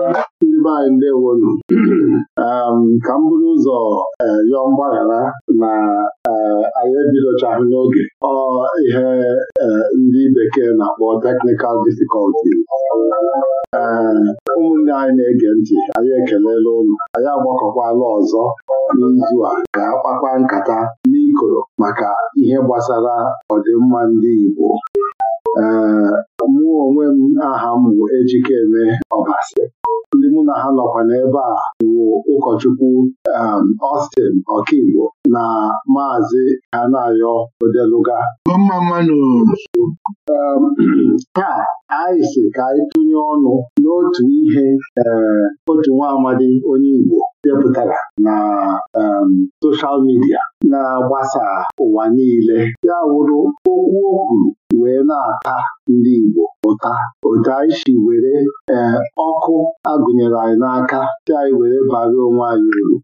Ndị anyị ndewonu um, ka m bụrụ ụzọ yọọ eh, mgbaghara na eh, anyị ebidochaghị n'oge ọ ihe eh, ndị bekee na-akpọ technical difficulty ụmụnne anyị na-ege ntị anyị ekelela ụlọ anyị agbakọkwala ọzọ n'izu a ga akpakpa nkata n'ikoro maka ihe gbasara mma ndị Igbo mụ onwe m aha m bụ Ejikeme Ọbasi ndị mụ na ha nọkwa n'ebe a bụ ụkọchukwu um, Austin ọkaigbo na maazị Anayo Odeluga um, taa anyị si ka anyị tụnye ọnụ n'otu ihe um, otu nwa amadi onye Igbo depụtara na soshal midia na-agbasa ụwa niile ya wụrụ okwu o kwuru wee na-ata ndị Igbo ụta otu anyị si were e, ọkụ agụnyere anyị n'aka si anyị were bara onwe anyị uru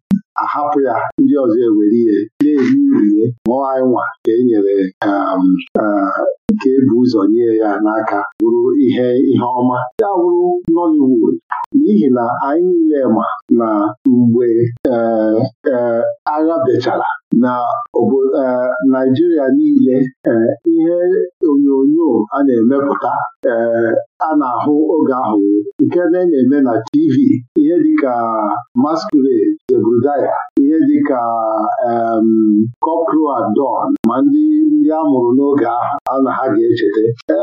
ahapụ ya ndị ọzọ ewere ihe na-eri urie mụọ anyị nwa ka e nyere ka ebu e ụzọ nye ya n'aka bụrụ ihe ihe ọma ya bụrụ Nollywood n'ihi na anyị niile ma na mgbe e, agha bechara na e, Naijiria niile e, ihe onyonyo a na-emepụta e, a na-ahụ oge ahụ nke na-eme na TV ihe dịka Masquerade de Zebrudaya ihe dịka Cockerel at ma ndị ndị a mụrụ n'oge ahụ a na ha ga-echeta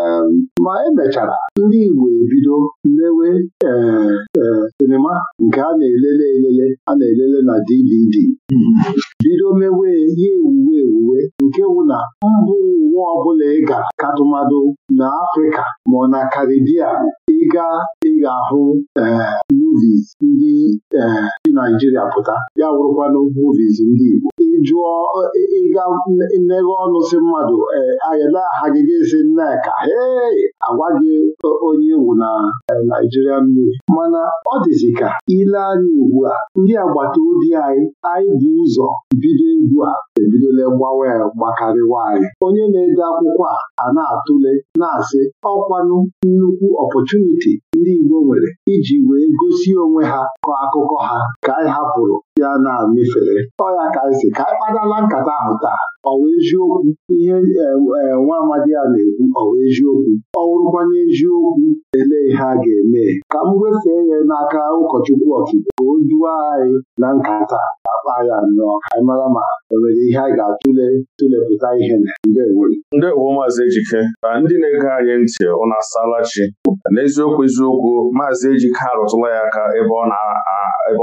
ma emechara ndị Igbo ebido mewe sinima nke a na-elele elele a na-elele na DVD na Karibia ịga ị ga-ahụ ee eh, movies ndị ee eh, Naijiria pụta ya wụrụkwana movies ndị Igbo jụọ ịga mmeghe ọnụ si mmadụ e, ayala aha gị ga-esi nneka ee agwa gị onye ewu na e, naijiria movie mana ọ dịzị ka ile anya ugbu a ndị agbata obi anyị anyị bụ ụzọ bido egwu a ebidola gbawa ya gbakarịwa anyị onye na-ede akwụkwọ a na-atụle na-asị ọkwanụ nnukwu ọpọchuniti ndị Igbo nwere iji wee gosi onwe ha kọọ akụkọ ha ka anyị hapụrụ a na-amịfere ọ ya ka si ka anyị e kpadala nkata ahụ taa ọwa eziokwu ihe e, e, nwa amadi a na-ekwu ọwa eziokwu ọ wụrụkwanye eziokwu elee ihe a ga-eme ka m wefee ya n'aka ụkọchukwu ọchụko ka o duo anyị na nkata akpa ya nnọọ ka anyị mara ma enwere ihe anyị ga-atụle tụlepụta ihe Ndị ndewo maazị ejike ka ndị na-ege anyị ntị ụnụ asala chi n'eziokwu eziokwu maazị ejike arụtụla ya aka ebe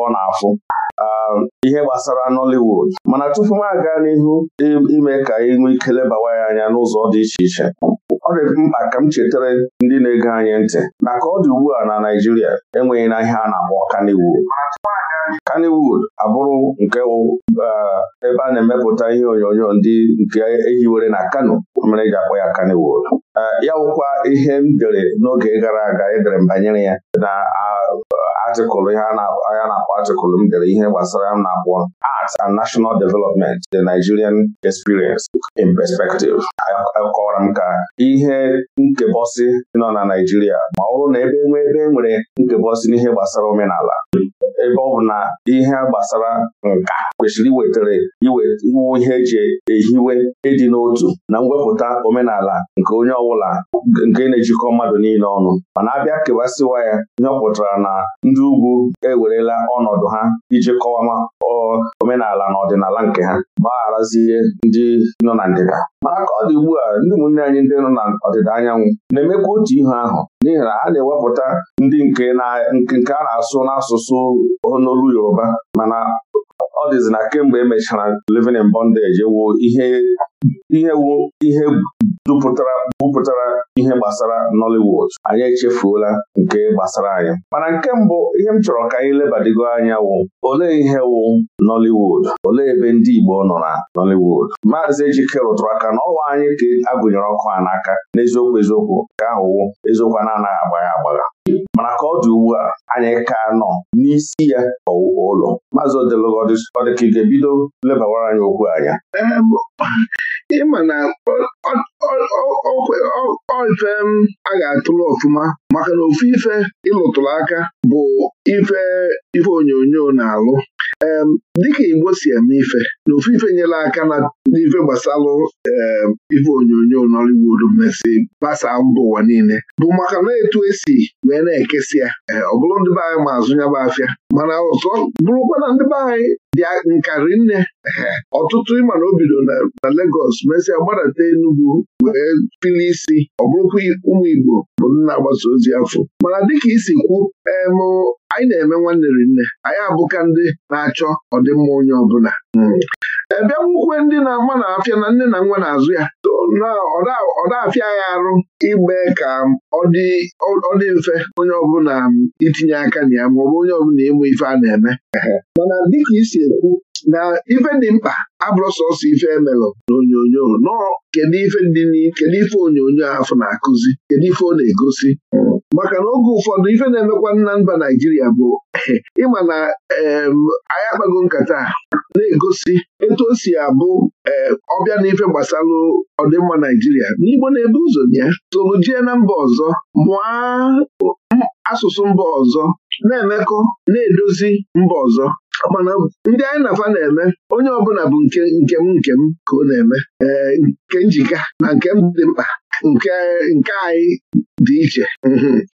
ọ na-afụ Um, ihe gbasara Nollywood mana tupu m aga n'ihu ime ka anyị nwee ike lebawa ya anya n'ụzọ dị iche iche ọ dị mkpa ka m chetara ndị na-ege anyị ntị na ka ọ dị ugbu a na Naịjirịa enweghị na ihe a na-akpọ Kannywood Kannywood abụrụ nke um, ebe a na-emepụta ihe onyonyo ndị nke ehiwere na Kano mere eji akpọ ya Kannywood Eh, ya wụkwa ihe m dere n'oge gara aga edere m banyere ya na atịkụlụ ihe a na-akpọ atịkụlụ m dere ihe gbasara m na-akpọ Arts and National Development The Nigerian Experience in Perspective akọwara m ka ihe nkebọsị nọ na Naijiria ma ọ bụrụ na ebe nwee ebe nwere nkebọsị n'ihe gbasara omenala ebe ọ bụ na ihe gbasara nka kwesịrị iwetara iwe ihe eji ehiwe ịdị n'otu na mwepụta omenala nke onye bụla nke na-ejikọ mmadụ niile ọnụ mana abịa kewasịwa ya ihe na ndị ugwu ewerela ọnọdụ ha iji kọwama omenala na ọdịnala nke ha gbagharazie ndị nọ na ndịda mana ka ọ dị ugbu a ndị ụmụnne anyị ndị nọ na ọdịda anyanwụ na-emekwa otu ihe ahụ n'ihi na ha na-ewepụta ndị nke a na-asụ n'asụsụ n'olu Yoruba mana ọ dịzi na kemgbe emechara mechara living in bondage wụ ihe ihe ihe bupụtara ihe gbasara Nollywood anyị echefuola nke gbasara anyị mana nke mbụ ihe m chọrọ ka anyị lebadigo anya wụ olee ihe wụ Nollywood olee ebe ndị Igbo nọ na Nollywood Maazị Ejike rụtụrụ aka na ọwa anyị ka agụnyere ọkụ a n'aka n'eziokwu eziokwu nke ahụwụ eziokwu na-anaghị agbagha agbagha mana ka ọ dị ugbu a anyị ka nọ n'isi ya ọwụwa ụlọ maazị ọdịka ị ga-ebido lebawara anyị okwu anya ịma na ife a ga-atụrụ ọfụma maka na ofu ife ịlụtụrụ aka bụ ife onyonyo na-alụ dịka Igbo si eme ife na ofufe ife nyere aka na n'ife gbasalụ ife onyonyo Nollywood mmesị gbasaa mba ụwa niile bụ maka na etu esi wee na-ekesị ya eh, ọ bụrụ ndị be anyị ma azụ nyaba afịa mana ọzọ bụrụkwa na ndị be anyị ndị nkarị nne eh, ọtụtụ ịma na o bido na legos mesịa e gbadata Enugwu wee pili isi ọ bụrụkwa ụmụ Igbo bụ nna agbasa ozi afọ mana dịka isi kwu em anyị na-eme nwanne nne anyị abụka ndị na-achọ ọdịmma onye ọbụla Hmm. ebe eh, nwukwe ndị na-ama na-afịa na nne na nwa na-azụ ya ọ afịa ya arụ igbe ka ọ dị mfe onye ọbụla itinye aka na ya maọbụ onye ọbụla ịmụ ife a na-eme mana dịka isi ekwu na ife dị mkpa abụrụ sọsọ ife emelụ na onyonyo nọọ kedu ife onyonyo ahụ na-akụzi kedu ife ọ na-egosi hmm. maka na oge ụfọdụ ife na-emekwa na mba Naijiria bụ ịma na anyị akpago nkata na-egosi etu o si abụ ọbịa na ife gbasalụ ọdịmma Naijiria n'Igbo na-ebu ụzọ ya solu jee na mba ọzọ mụọ asụsụ mba ọzọ na-emekọ na-edozi mba ọzọ mana ndị anyị na-afa na-eme onye ọbụla bụ nke m nke m ka ọ na-eme ee nke njika na nke m dị mkpa nke nke anyị dị iche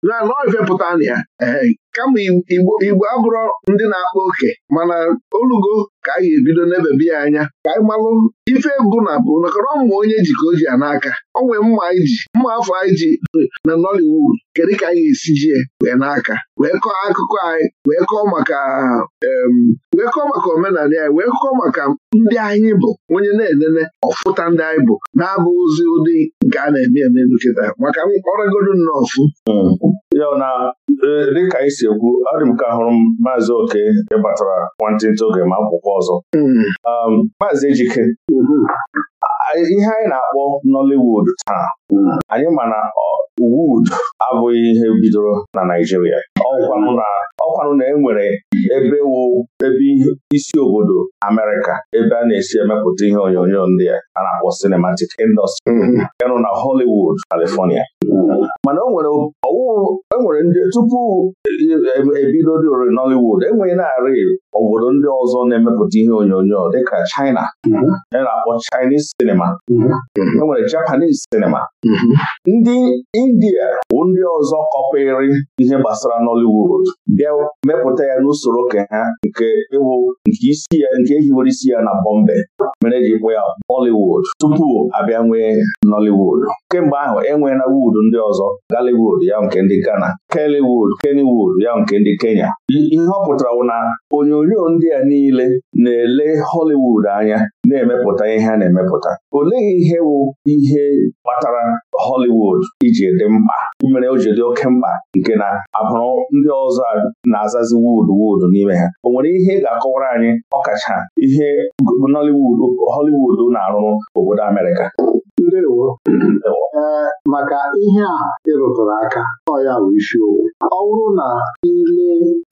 naanị ọ pụta na ya eh, kama igbo abụrọ ndị na-akpa oke mana olugo ka a ga-ebido n'ebebe ya anya ka anyị malụ ife bụ na bụ nakọrọ mma onye ji ka o ji ya n'aka o nwee mma anyị ji mma afọ anyị ji na Nollywood kedu ka anyị ga-esi ji wee n'aka wee kọọ akụkọ anyị wee kọọ maka wee kọọ maka omenala anyị wee kọọ maka ndị anyị bụ onye na-enene ọfụta ndị anyị bụ na-abụ ozi ụdị nke a na-eme eme nkịta maka ọrịagodu nnọọ ọfụ hmm. ya na e, dịka anyị e si ekwu adị m ka hụrụ m maazị oke ịbatara nwantịntị oge ma akwụkwọ ọzọ um, maazị ejike ihe anyị na-akpọ Nollywood taa anyị ma na Wood abụghị ihe bidoro na Ọ ọkwanụ na enwere ebe ebe isi obodo amerika ebe a na-esi emepụta ihe onyonyo ndị a na-akpọ cinematic industry ịnụ mm-hmm. na Hollywood California mana o nwere nwere ndị tupu e, e, e, ebido dị ori Nollywood enweghị narị obodo ndị ọzọ na-emepụta ihe onyonyo dịka China a mhm. na-akpọ Chinese sinema mhm. enwere Japanese sinema mhm. ndị India bụ ndị ọzọ kọpịrị ihe gbasara Nollywood bịa mepụta ya n'usoro ke ha nke ịwụ nke isi ya nke ehiwere isi ya na Bombay mere ji kpọ ya Bollywood tupu abịa nwee Nollywood kemgbe ahụ na wood ndị ọzọ Gallywood ya nke ndị Ghana Kellywood Kennywood ya nke ndị Kenya ihe ọ pụtara wụ na onyonyo ndị a niile na-ele Hollywood anya na-emepụta ihe a na-emepụta olee ihe bụ ihe kpatara Hollywood iji dị mkpa mere o ji dị oke mkpa nke na abụrụ ndị ọzọ na-azazi wood wood n'ime ha o nwere ihe ị ga-akọwara anyị ọkacha ihe Hollywood na-arụrụ obodo Amerịka Ndewo ee maka ihe a ịrụtụrụ aka ọ ya bụ owu. ọ bụrụ na ile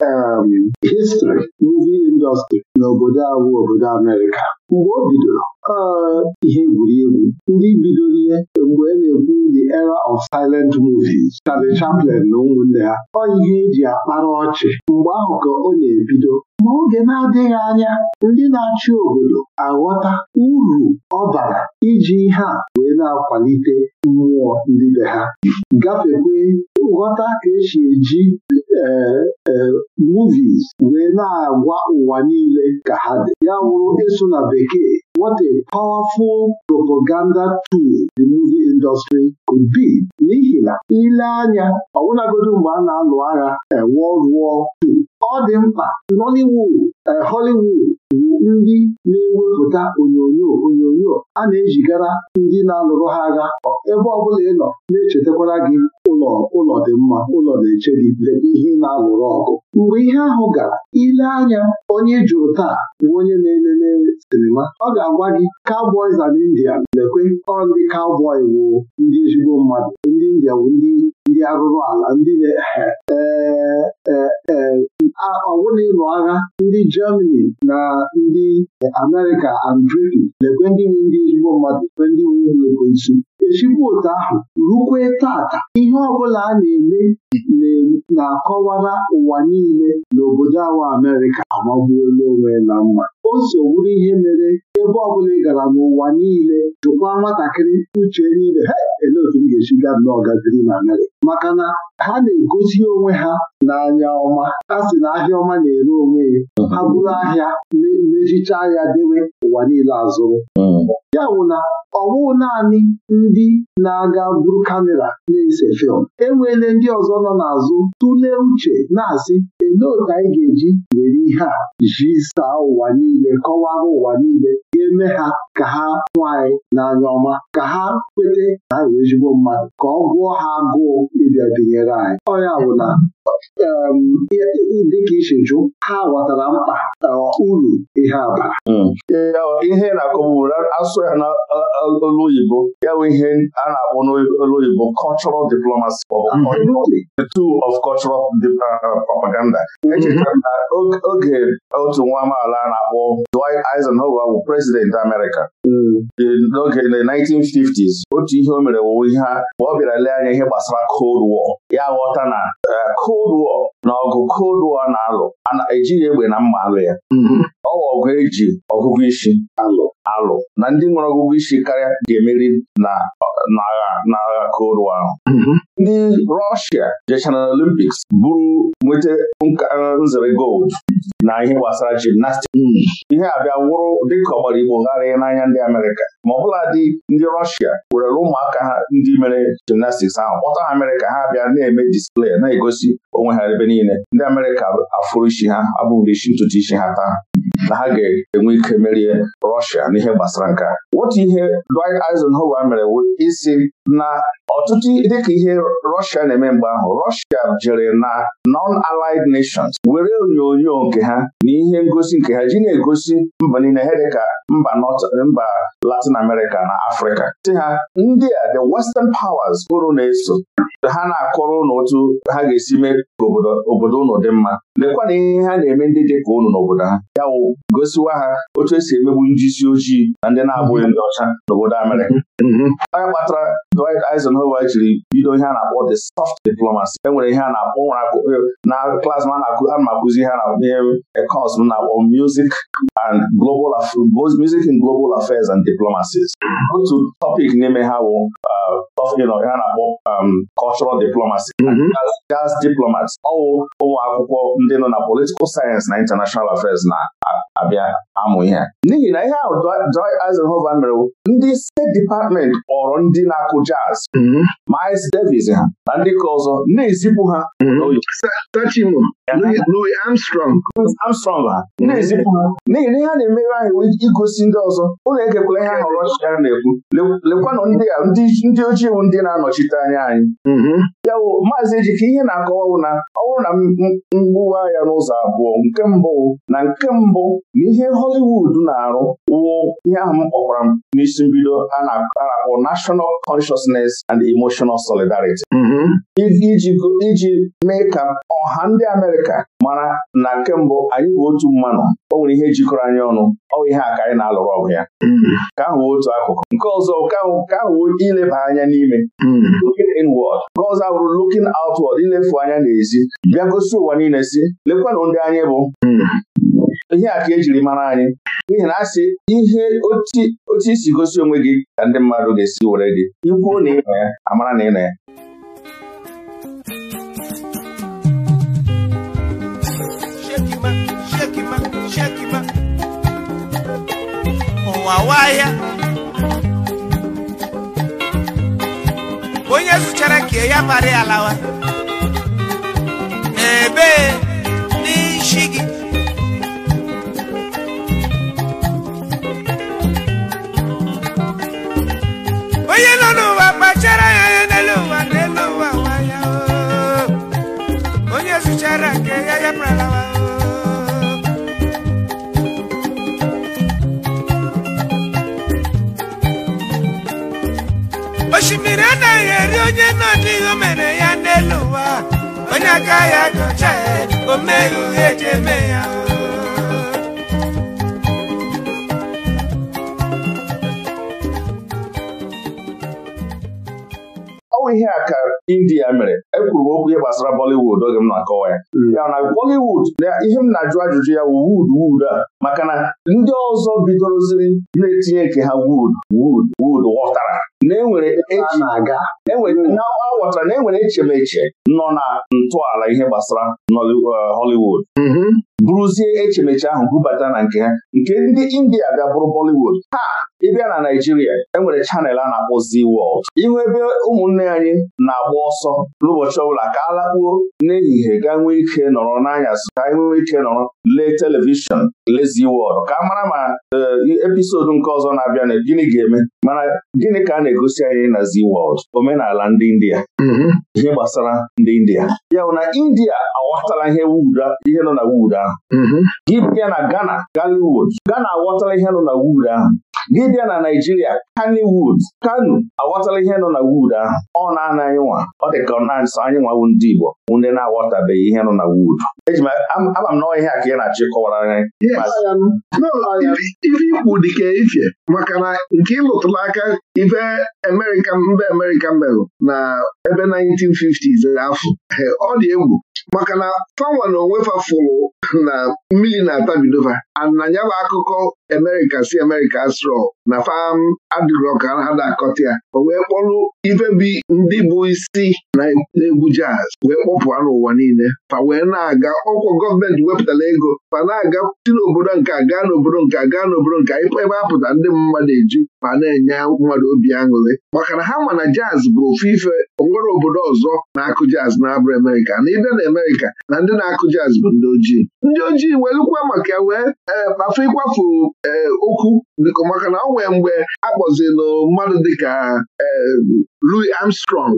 em histrị indọstri indọstrị n'obodo a obodo Amerịka mgbe o bidoro ee ihe egwuregwu ndị bidoro ihe mgbe a e na-ekwu era of silent movies Charlie Chaplin na ụmụnne ya ọ ihe eji akpara ọchị mgbe ahụ ka ọ na-ebido ma oge na-adịghị anya ndị na-achị obodo aghọta uru ọ bara iji ihe a wee na-akwalite mmụọ ndị be ha gafekwe nghọta ka esi eji e, e, movies wee na-agwa ụwa niile ka ha dị ya wụrụ ịsụ na bekee what a powerful propaganda tool the movie industry could be n'ihi na ile anya ọbụlagodi mgbe a na-alụ agha ewo ruo ọ dị mkpa Nollywood eh, Hollywood bụ ndị na-ewepụta onyonyo onyonyo a na-ejigara ndị na-alụrụ ha agha ebe ọ bụla ị nọ na-echetakwara gị ụlọ ụlọ dị mma ụlọ na-eche gị lebe ihe na-alụrụ ọgụ mgbe ihe ahụ gara ile anya onye jụrụ taa bụ onye na-elele sinima ọ ga-agwa gị Cowboys and india lekwe ọ ndị cowboy bụ ndị ezigbo mmadụ ndị India bụ ndị ndị arụrụ ala ndị e, e, e, ọwụna ịlụ agha ndị Germany na ndị America and Britain ekwe ndị nwe ndị ezigbo mmadụ ekwe ndị nwe ndị ekwensu echigbu otu ahụ rukwe tata ihe ọbụla a na-eme na-akọwara ụwa niile n'obodo awa Amerịka amagbuola onwe na mma o so ihe mere ebe ọbụla ị gara n'ụwa niile jụkwa nwatakịrị uche niile ha elee otu m ga-esi gaa n'ọgaziri na narị maka na ha na-egosi onwe ha n'anya ọma a sị na ahịa ọma na-ere onwe ya ha bụrụ ahịa mechicha ya dewe ụwa niile azụrụ ya bụ na ọ naanị ndị na-aga buru kamera na-ese fịlm enweele ndị ọzọ nọ n'azụ tụlee uche na-asị ndị otu anyị ga-eji were ihe a ji saa ụwa niile kọwara ụwa niile ga-eme ha ka ha hụ anyị n'anya ọma ka ha kwete na ha ezigbo mmadụ ka ọ gụọ ha agụụ ịbịa binyere anyị ọ bụ na dịka isi jụ ha ghọtara mkpa eh, uru ihe a hmm. ihe na-akọbụrụ asụ ya n'olu e, e, oyibo ya bụ ihe a na-akpọ n'olu oyibo cultural diplomacy the tool of cultural eh, propaganda Mhm. na oge otu nwa amaala a na-akpọ Dwight Eisenhower bụ prezidenti Amerika. Mm. n'oge na 1950s otu ihe o mere wụwe ihe ha ma ọ bịara lee anya ihe gbasara Cold War ya ghọta na eh, Cold War na ọgụ Cold War na-alụ ana ejighị egbe na mma alụ ya mhm. ọ bụ ọgụ eji ọgụgụ isi alụ na ndị nwere ọgụgụ isi karịa ga-emeri na agha Cold War ahụ mhm. ndị Rọshia jechara na Olimpiks bụrụ nweta E, nzere gold na ihe gbasara gimnastik ihe a bịa wụrụ dịka ọgbara Igbo gharịa n'anya ndị Amerịka ma ọ bụla dị ndị Rọshia werere ụmụaka ha ndị mere jimnastiks ahụ kpọta ha Amerịka ha bịa na-eme display na-egosi onwe ha ebe niile ndị Amerịka afụrụ isi ha abụghị isi ntutu isi ha taa na ha ga-enwe ike merie Rọshia n'ihe gbasara nke wotu otu ihe Dwight Hoba mere isi na ọtụtụ dịka ihe Rọshia na-eme mgbe ahụ Rọshia jere na non alied Nations were onyonyo nke ha na ihe ngosi nke ha ji na-egosi mba niile dịka mba mba Latin America na Afrịka si ha ndị a the Western powers bụrụ na-eso ha na-akọrọ ụnụ otu ha ga-esi mee ka obodo ụnụ dị mma lekwa na ihe ha na-eme ndị dị ka ụnụ n'obodo ha ya wụ gosiwa ha otu esi emegbu ndị isi ojii na ndị na-abụghị ndị ọcha n'obodo Amerịka mm-hmm. onye kpatara Dwight Eisenhower jiri bido ihe a na-akpọ the soft diplomacy e nwere ihe a na-akpọ na klas ma a na-akụzi ihe na ekọs m na-akpọ music and global both music and global affairs and diplomacies otu topic n'ime ha bụ ha uh, na-akpọ um, cultural diplomacy gas mhm. diplomats ọwụ ụmụ akwụkwọ ndị nọ na political science na international affairs na abịa amụ ihe n'ihi na ihe ahụ Dwight Eisenhower mere ndị steeti depatmenti kpọrọ ndị na-akụ jazz Miles mhm. Davis ha na ndị ka ọzọ na-ezipụ ha Louis ha na-ezipụ ha n'ihi na ihe a na-emere anyị igosi ndị ọzọ ụlọ egekwala ihe ahụ Rọshia na-ekwu lekwanụ ndị ojii iwu ndị na-anọchite anya anyị mhm. ya bụ maazị Ejike ihe na-akọwa na ọ bụrụ na mgbuwa ya n'ụzọ abụọ nke mbụ na nke mbụ N'ihe Hollywood na-arụ wụ ihe ahụ m kpọkwara m n'isi mbido a na-akpọ National Consciousness and Emotional Solidarity mm-hmm. iji mee ka ọha ndị Amerịka mara na kemgbe anyị bụ otu mmanụ o nwere ihe jikọrọ anyị ọnụ ọ bụ ihe a ka anyị na-alụrụ ọgụ ya mm-hmm. ka ahụ otu akụkụ nke ọzọ ka ahụ ileba anya n'ime mm-hmm. looking inward nke ọzọ abụrụ looking outward ilefu anya n'ezi bịa gosi ụwa niile si lekwanụ ndị anyị bụ ihe a ka ejiri mara anyị n'ihi na asị ihe otu isi gosi onwe gị ka ndị mmadụ ga-esi were gị ikwuo na ịnọ ya amara na ịnọ ya oh, onye zụchara kee ya mara alawa, lawa ebee n'isi gị onye nọ n'ụwa kpachara ya anya n'elu ụwa na ụwa nwaya onye zụchara nke ya ya pralawa osimiri anaghị eri onye nọ n'ihu mere ya n'elu ụwa onye aka ya gọcha ya o eji eme ya ihe a ka India mere ekwuru m okwu ihe gbasara Bollywood oge m na-akọwa ya hmm. ya na Bollywood ihe m na-ajụ ajụjụ ya wu wuud wuud a maka na ndị ọzọ bidoroziri na-etinye nke ha wud wud wud wọtara na enwere aghọtara e na enwere echemeche nọ na ntọala ihe gbasara uh, Hollywood mhm. bụrụzie echemeche ahụ bubata na nke ha nke ndị India bịa bụrụ Bollywood ha ịbịa na Naijiria enwere chanel a na-akpọ Z World ihu ebe ụmụnne anyị na-agba ọsọ n'ụbọchị ọbụla ka alakpuo n'ehihie ga nwee ike nọrọ n'anyasị ka nwee ike nọrọ lee telivishọn le. eziwe ọrụ ka a mara ma eh, episodu nke ọzọ na-abịa na gịnị ga-eme mana gịnị ka a na-egosi anyị na Zee Wọld omenala ndị India mm-hmm. ihe gbasara ndị India ya na India aghọtala ihe ihe nọ na wuud ahụ mm-hmm. gị bịa na Ghana Galiwood Ghana aghọtala ihe nọ na wuud ahụ gị bịa na Naijiria Kani Wood Kanu aghọtala ihe nọ na Wood ahụ ọ na-ana anyị nwa ọ dị ka ọ na-asọ anyị nwawu ndị Igbo ndị na-aghọtabeghị ihe nọ na Wood eji m ama m ihe ka ị na-achọ ịkọwara anyị ife ikwu dị ka ife maka na nke ịlụtụla aka ife mba Amerika merụ na ebe 1950s afọ ọ dị egwu maka na fanwa na onwe fafụrụ na mmiri na-atabidova ana ya bụ akụkọ Amerịka si Amerika sro na fam um, adịrọ ka ha na ya o wee kpọrụ ife bi ndị bụ isi na-egwu jaz wee kpọpụa n'ụwa niile fa wee na-aga ọkwọ gọọmenti wepụtara ego fa na-aga si n'obodo nke gaa n'obodo nke gaa n'obodo nke ebe apụta ndị mmadụ eju ma na-enye mmadụ obi aṅụrị maka na ha ma na jaz bụ ofu ife onwere obodo ọzọ na-akụ jaz na-abụ Amerịka na ibe na Amerịka na ndị na-akụ jazz bụ ndị ojii ndị ojii welukwa maka wee e, afọ ịkwafu e, okwu biko maka na ọ mgbe a kpọzilụ mmadụ dịka e, Louis Armstrong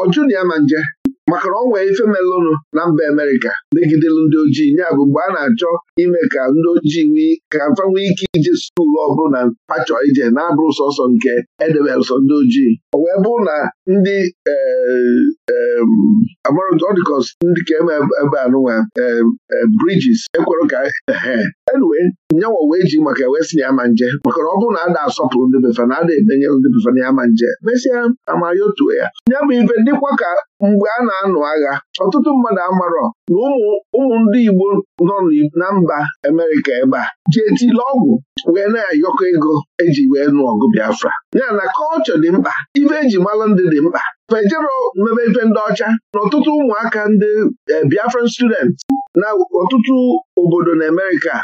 ọ jụrụ ya ma nje maka na ọ nwee ife melụnụ na mba Amerịka megidelu ndị ojii ya bụ mgbe a na-achọ ime ka ndị ojii ka mfa ike ije skuul ọ bụrụ na pachọ ije na-abụrụ sọsọ nke edebere ndị ojii ọ wee bụ na ndị eh, eh, amarụdọdikọs ndị ka eme ebe anụnwa eh, Bridges ekwere ka enwe nyanwa wee ji maka wee si na ya ma nje maka na ọ bụrụ na ada asọpụrụ ndị befa na ada ebenye ndị befa na ya ma nje mesịa amayotuo ya ya bụ ife dịkwa ka mgbe a na-anụ agha ọtụtụ mmadụ amarọ na ụmụ ndị Igbo nọ na mba amerika ebe a ji etile ọgwụ wee na-ayọkọ ego eji wee nụ ọgụ Biafra ya na kọlchọ dị mkpa ife eji malụ ndị dị mkpa fejero mmebe ife ndị ọcha na ọtụtụ ụmụaka ndị eh, Biafran students na ọtụtụ obodo na Amerịka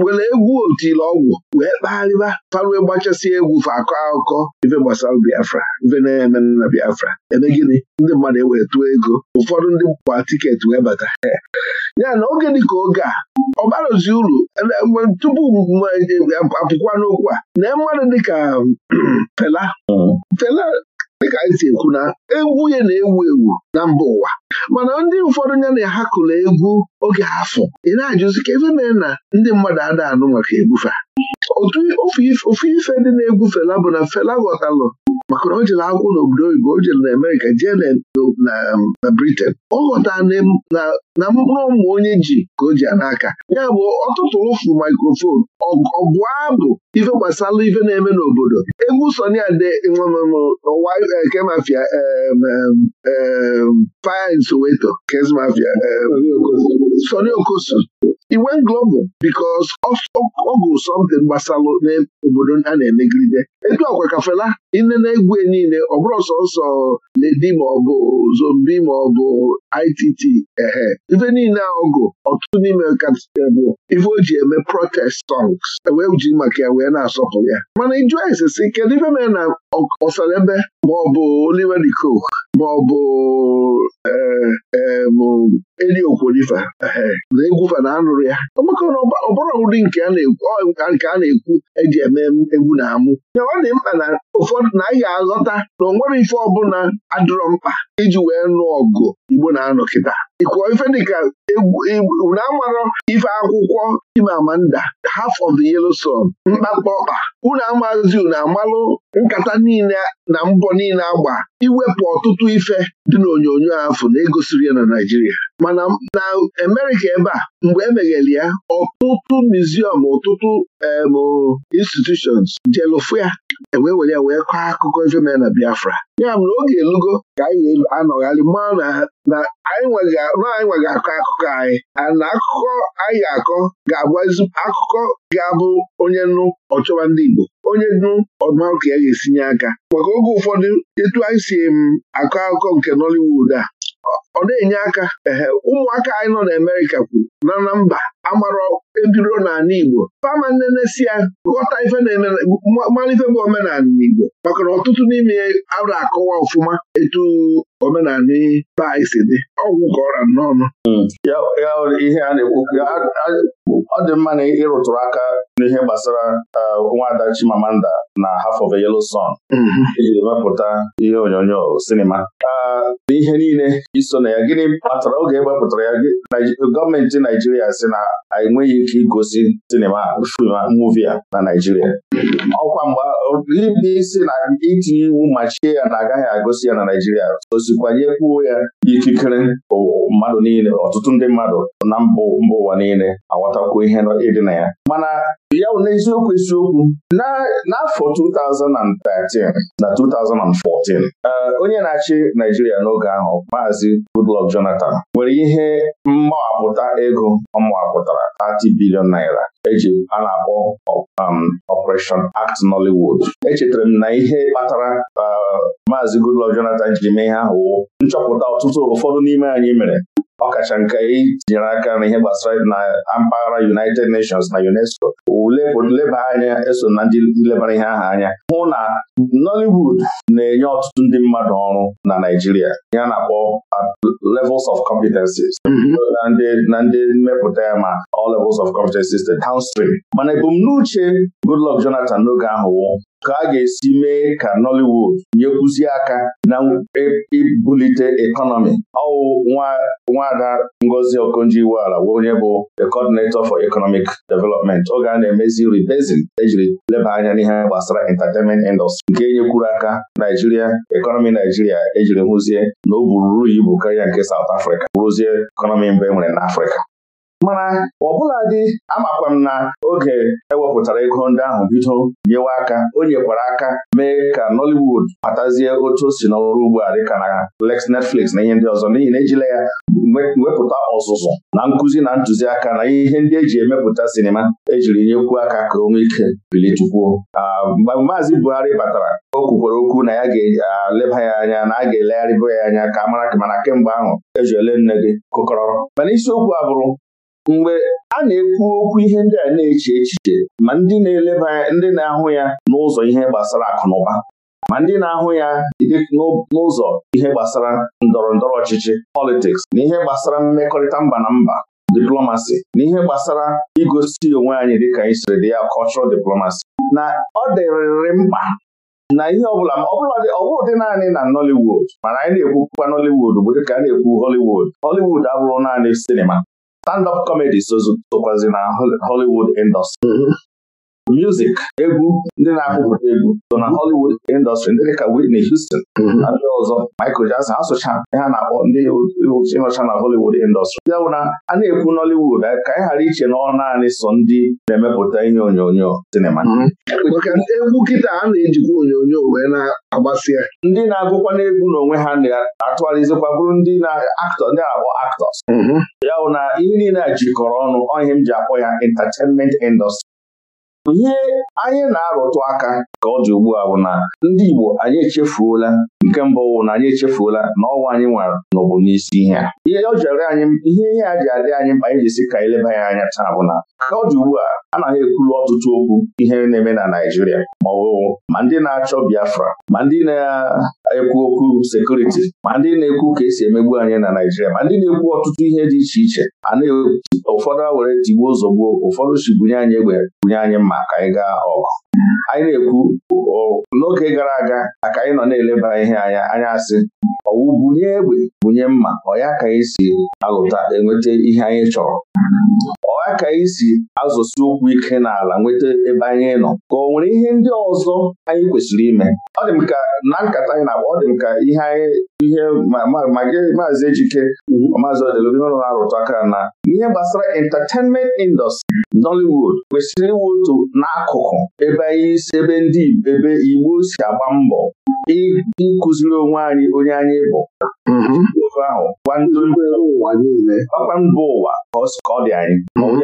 nwere egwu otile ọgwụ wee kpagharịba farue gbachasị egwu fa akọ akụkọ ife gbasara Biafra ife na-eme na Biafra eme ndị mmadụ ewee tụọ ego ụfọdụ ndị gba tiketi wee bata ya na oge dị ka oge a ọ barozi uru tupu apụkwa n'okwu a na mmadụ dịka Fela hmm. Fela dịka anyị si ekwu na egwu ya na-ewu ewu na mba ụwa mana ndị ụfọdụ ya na-ahakụla egwu oge afọ ị na-ajụzi ka ebe mee na ndị mmadụ ada anụ maka egwufe ofu ife ndị na-egwu fela bụ na fela ghọtalụ maka na o jere n'obodo oyibo o jere na Amerika jee um, na Britain ọ ghọtara na mkpụrụ ụmụ onye ji ka o ji n'aka ya bụ ọtụtụ ụfụ maikrofon ọgụ abụ ife gbasara ife na-eme n'obodo egwu Sonia Ade n'ụwa ke mafia e, e, Fire in Soweto Kes mafia e, Sonny Okosu iwe global because ọgụ something gbasalụ n'obodo a na-emegide etu ọkwa ka Fela ine na e niile ọ bụrụ sọsọ Ledi maọbụ Zombi maọbụ ITT ehe ife niile ọgụ ọtụtụ n'ime bụ ife o ji eme protest songs e wee ji maka ya wee na asọpụ ya mana ịjụ ese si kedu ife mere na ọsalebe maọbụ Oliver Diko maọbụ eh, eh, eli okwolifa na egwufa na anụrụ ya maka na ọbụrụ ụdị nke a na-ekwu eji e eme egwu na amụ ọ dị mkpa na ụfọdụ na ahịa aghọta na onwere ife ọbụla adịrọ mkpa iji wee nụọ ọgụ Igbo na-anọ kịta ịkụọ ife dịka na amarọ ife akwụkwọ amanda, Half of the Yellow Sun mkpakpa ọkpa unu amazi unu amalụ nkata niile na mbọ niile agba iwepụ ọtụtụ ife dị n'onyonyo afọ na-egosiri ya na Naịjirịa mana na Amerịka ebe a mgbe emeghere ya ọtụtụ miziọm ọtụtụ institutions jelụfụ ya ewee were ya wee kọọ akụkọ ife mere na Biafra ya mere oge elugo ka anyị anọgharị maa na anyị nweghị akọ akụkọ anyị na akụkọ anyị ga-akọ ga-abụ akụkọ ga-abụ onye nnu ọchọwa ndị Igbo onye nụ ọdụma ka ya ga-esinye aka maka oge ụfọdụ etu anyị si m akọ akụkọ nke Nollywood a ọ na-enye aka ee ụmụaka anyị nọ na Amerịka kwuru na na mba amara ebiro n'ala Igbo fama nnenesi ya ghọta ife mara ife bụ omenala Igbo maka na ọtụtụ n'ime ara akọwa ọfụma etu omenala ba isi dị ọgwụ ka ọra n'ọnụ ihe a na-ekwu ọ dị mma na ịrụtụrụ aka n'ihe gbasara nwada Chimamanda na Half of a Yellow Sun mhm. ijiri wepụta ihe onyonyo sinima n'ihe niile iso na ya gịnị kpatara oge e wepụtara ya gọọmenti na Naijiria si na enweghị ike igosi sinima fim muvi a na Naijiria ọkwa mgbe ndị isi na itinye iwu machie ya na agaghị agụsi ya na Naijiria osikwanyekwuo ya ikikere mmadụ niile ọtụtụ ndị mmadụ na mba ụwa niile aghọtakwuo ihe ịdị na ya mana ya bụ n'eziokwu isiokwu n'afọ 2013 na 2014 eh, onye na-achị Naijiria n'oge ahụ Maazi Goodluck Jonathan nwere ihe mmawapụta ego ọ mawapụtara 30 bilion naira eji a na-akpọ um, Operation Act Nollywood echetara m na ihe kpatara uh, maazị Goodluck Jonathan jiri mee ihe ahụ wo nchọpụta ọtụtụ ụfọdụ n'ime anyị mere ọkacha nke tinyere aka na ihe gbasara na mpaghara United Nations na UNESCO leba anya eso na ndị nlebara ihe ahụ anya hụ na Nollywood na-enye ọtụtụ ndị mmadụ ọrụ na Naịjirịa ya na-akpọ uh, levels of competencies mm-hmm. na ndị mmepụta ya ma all levels of competencies the downstream mana ebumnuche Goodluck Jonathan n'oge ahụ nke a ga-esi mee ka Nollywood nyekwuzie aka na ibulite ekọnọmi ọwụ nwada Ngozi ọkụnji iweala onye bụ the coordinator for economic development oge a na-emezi rebasing ejiri leba anya n'ihe gbasara entertainment industry nke nyekwuru aka Naijiria ekọnọmi Naijiria ejiri hụzie na o buru ibu karịa nke South Africa bụrụzie ekọnọmi mbụ e nwere n'Africa mana ọbụla dị amakwam m na oge ewepụtara ego ndị ahụ bido nyewe aka o nyekwara aka mee ka Nollywood kpatazie otu o si n'ọrụ ugbo a dịka na Lex Netflix na ihe ndị ọzọ n'ihi na ejila ya wepụta ọzụzụ na nkụzi na ntụziaka na ihe ndị eji emepụta sinima ejiri nyekwuo aka ka onwe ike bilitukwuo mgbe maazị Buhari batara o kwukwara okwu na ya ga-eleba ya anya na a ga elegharịbụ ya anya ka a mara mana kemgbe ahụ eji ele nne gị kụkọrọ mana isiokwu a bụrụ mgbe a na-ekwu okwu ihe ndị a na-eche echiche ma ndị na-eleba ndị na-ahụ ya n'ụzọ ihe gbasara akụnụba ma ndị na-ahụ ya n'ụzọ ihe gbasara ndọrọ ndọrọ ọchịchị politiks na ihe gbasara mmekọrịta mba na mba diplomasi na ihe gbasara igosi onwe anyị dịka anyị siri dị ya cultural diplomasi na ọ dịrịrị mkpa na ihe ọbụla ọbụrụ dị naanị na Nollywood mana anyị na-ekwukwa Nollywood bụ dịka a na-ekwu Hollywood Hollywood abụrụ naanị sinima stand-up comedy sokwazi na Hollywood industry mm-hmm. music egwu ndị na-akụpụta egwu so na Hollywood industry ndị dịka Whitney Houston mhm. na ndị ọzọ Michael Jackson asụcha ha na-akpọ ndị ịnọcha na Hollywood industry ya bụ na a na-ekwu Nollywood eh, ka anyị ghara iche na ọ naanị so ndị na-emepụta ihe onyonyo sinima mhm. egwu kịta a na-ejikwa onyonyo wee na-agbasịa ndị na-agụkwa n'egwu n'onwe ha na-atụgharịzikwa bụrụ ndị na-aktọ ndị na-akpọ actors mhm. ya bụ na ihe niile a jikọrọ ọnụ ọ ihe m ji akpọ ya entertainment industry ihe anyị na-arụtụ aka ka ọ dị ugbu a bụ na ndị Igbo anyị echefuola nke mbụ wụ na anyị echefuola na ọnwa anyị nwere n'ụbụ n'isi ihe a ihe ọ jere anyị ihe ihe a ji adị anyị mkpa anyị jisi ka eleba ya anya taa bụ na ka ọ dị ugbu a naghị ekwulu ọtụtụ okwu ihe na-eme na Naịjirịa ma ọ bụ ma ndị na-achọ Biafra ma ndị na ekwu okwu sekuriti ma ndị na-ekwu ka esi emegbu anyị na Naijiria ma ndị na-ekwu ọtụtụ ihe dị iche iche a ụfọdụ a were tigbuo ozugbo ụfọdụ chigbunye anyị egbe bunye anyị mma ka anyị gaa ọgụ anyị na-ekwu n'oge gara aga aka anyị nọ na-eleba ihe anya anya asị ọwụ bunye egbe bunye mma ọ ya ka anyị si alụta enweta ihe anyị chọrọ ọha ka anyị si azụsi ụkwụ ike n'ala nweta ebe anyị nọ ka ọ nwere ihe ndị ọzọ anyị kwesịrị ime ọ dị ka na nkata anyị na-akpa ọ dị m ka ihe anyị ihe magị maazị Ejike mhm. maazị ọrụ na-arụtụ aka na ihe gbasara entertainment industry Nollywood kwesịrị otu n'akụkụ ebe anyị si ebe ndị ebe Igbo si agba mbọ ịkụziri onwe anyị onye anyị bụ mm-hmm. ofe ahụ gwa ụwa niile ọkwa mba ụwa ka ọ dị anyị mm-hmm.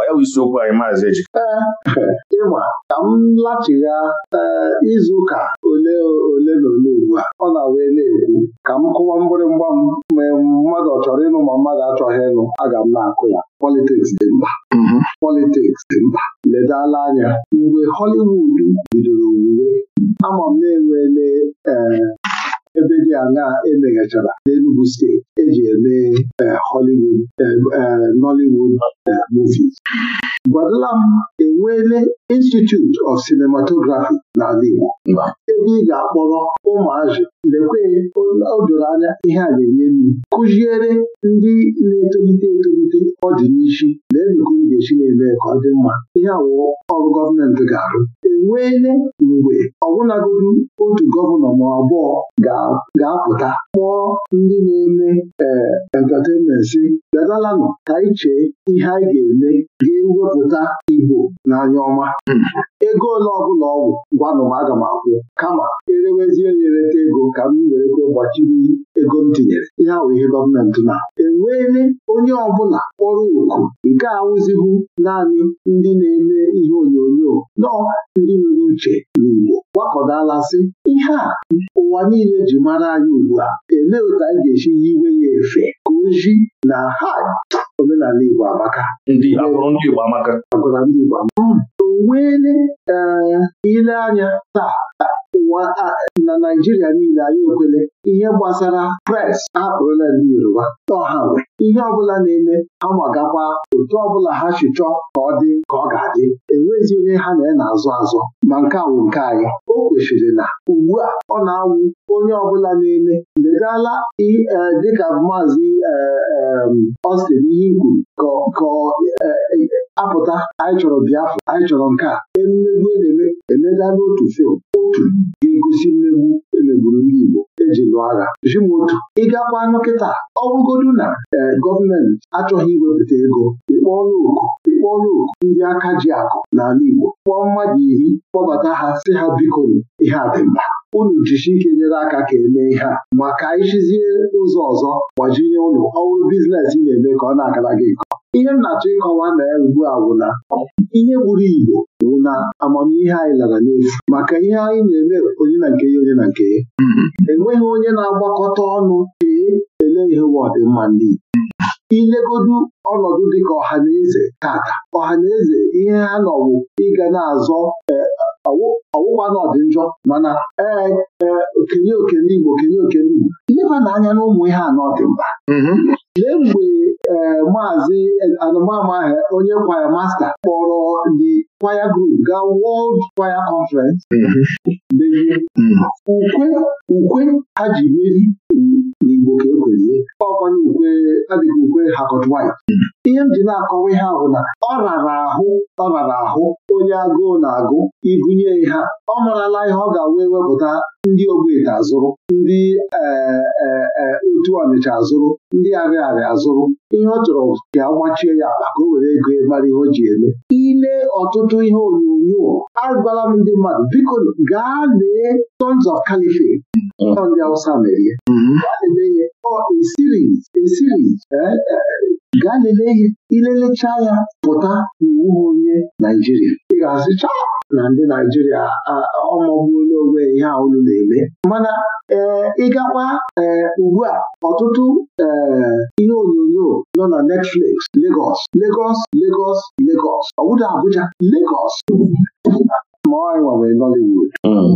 ọ ya bụ isiokwu anyị maazị ejika ịma ka m lachigha eh, izu ụka ole ole na ole ugbu a ọ na-wee na-ekwu ka m kụwa mgbịrịmgba m ma mmadụ ọ chọrọ ịnụ ma mmadụ achọghị ịnụ aga m na-akụ ya politiks dị mkpa mm-hmm. politiks dị mkpa ledala anya mgbe Hollywood bidoro wuwe ama m na-enwele eh, ebe dị aṅaa emeghachara n'enugwu steeti eji eme eh, Hollywood eh, Nollywood movies gwadala m enweele Institute of Cinematography n'ala Igbo ebe ị ga-akpọrọ ụmụazụ lekwe odoro anya ihe a na-enye nri kụziere ndị na-etolite etolite n'ishi na enugu ga-esi na-eme ka ọ dị mma ihe awụọ ọrụ gọọmenti ga-arụ enweele mgbe ọbụnagodu otu gọvanọ ma abụọ ga-apụta kpọọ ndị na-eme ee entatenmensi bịadalanụ ka anyị chee ihe anyị ga-eme ga-ewepụta Igbo n'anya ọma ego ole ọbụla ọgwụ gwanụ m aga m akwụ kama erewezie na ereta ego ka m werekwe gbachiri ego m tinyere ihe awụ ihe gọọmenti na enweele onye ọbụla kpọrọ oku nke a naanị ndị na-eme ihe onyonyo nọ ndị nwere uche n'Igbo sị, ihe a ụwa niile ji mara anyị ugbu a elee otu anyị ga-esi yiwe ya efe ka oji na ha omenala Igbo amaka ndị Igbo amaka hmm. o nweele ee eh, ile anya taa ụwa na Naijiria niile anyị ekwele ihe gbasara pres apụrụla ndị Yoruba ọha ihe ọbụla na-eme amagakwa otu ọbụla ha chụchọ ka ọ dị ka ọ ga-adị enwezi onye ha na ya na-azụ azụ ma nke awụ nke anyị o kwesịrị na ugbu a ọ na-awụ onye ọbụla na-eme ledala e, dịka maazị e, e, Austin ihe kwuru ka apụta anyị chọrọ Biafra anyị chọrọ nke a emegbu na-eme emega n'otu fim otu na-egosi mmegbu emegburu ndị Igbo eji lụọ agha otu ịgakwa nkịta ọ bụgodu na eh, gọọmenti achọghị iwepụta ego ịkpọọla oku ịkpọọla oku ndị aka ji akụ n'ala Igbo kpọọ mmadụ iri kpọbata ha si ha biko ihe adịmma unu jichi ike nyere aka ka emee ihe a maka ịchizie ụzọ ọzọ gbajinye ụlọ ọrụ biznes ị na-eme ka ọ na-agara gị nke ihe m na-achọ ịkọwa na ya ugbu a na ihe gburu Igbo bụ na amamihe anyị lara n'efu maka ihe anyị na-eme onye na nke ya onye na nke ya mm-hmm. enweghị onye na-agbakọta ọnụ chee ele ihe ụwa ọdịmma ndị ilegodu ọnọdụ dịka ọha na eze tata ọha na eze ihe ha nọwụ ịga na-azọ e, ọwụwa na njọ mana ee e, okenye okene Igbo okenye okene Igbo leba n'anya na ụmụ ihe anọ dị mkpa mm-hmm. lee mgbe ee maazị e, anụmama onye kwaya masta kpọrọ The kwaya Group gaa World Kwaya Conference mm-hmm. mm. ukwe ukwe ha ji meri n'Igbo ka ekwezie ọkwanye ukwe adịghị ukwe Harcourt White ihe m ji na-akọwa ihe ahụ na ọ rara ahụ ọ rara ahụ onye agụụ na-agụ igụnye ha ọ marala ihe ọ ga-wee wepụta ndị Ogbete azụrụ ndị e, e, e, otu Ọnịcha azụrụ ndị Arịarịa azụrụ ihe ọ chọrọ ka agbachie ya ka o were ego mara ihe o ji eme ile ọtụtụ ihe onyonyo agwala m ndị mmadụ biko gaa lee Sons of Caliphate ọ ndị Awụsa mere ihe eh, ihe gaa lele ihe ilelecha ya pụta n'iwu onye Naijiria ị ga azụcha na ndị Naijiria ọmọgbula onwe ihe a na-eme mana ee eh, ịgakwa ee eh, ugbu a ọtụtụ ee ihe onyonyo nọ na Netflix legos Legọs Legọs Legọs ọ Abuja Legọs. ma ọ nwere Nollywood hmm.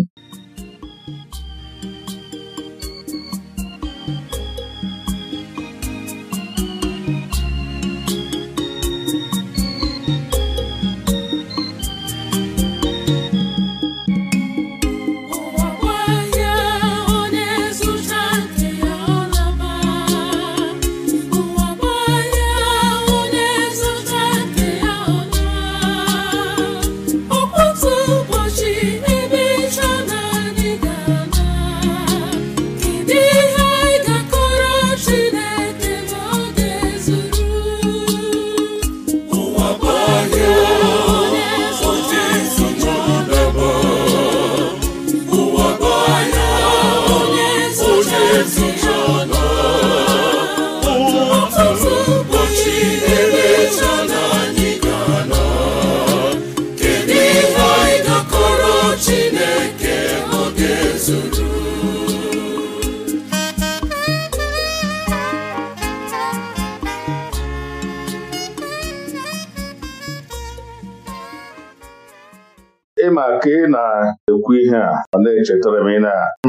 echetara m ị na-achụ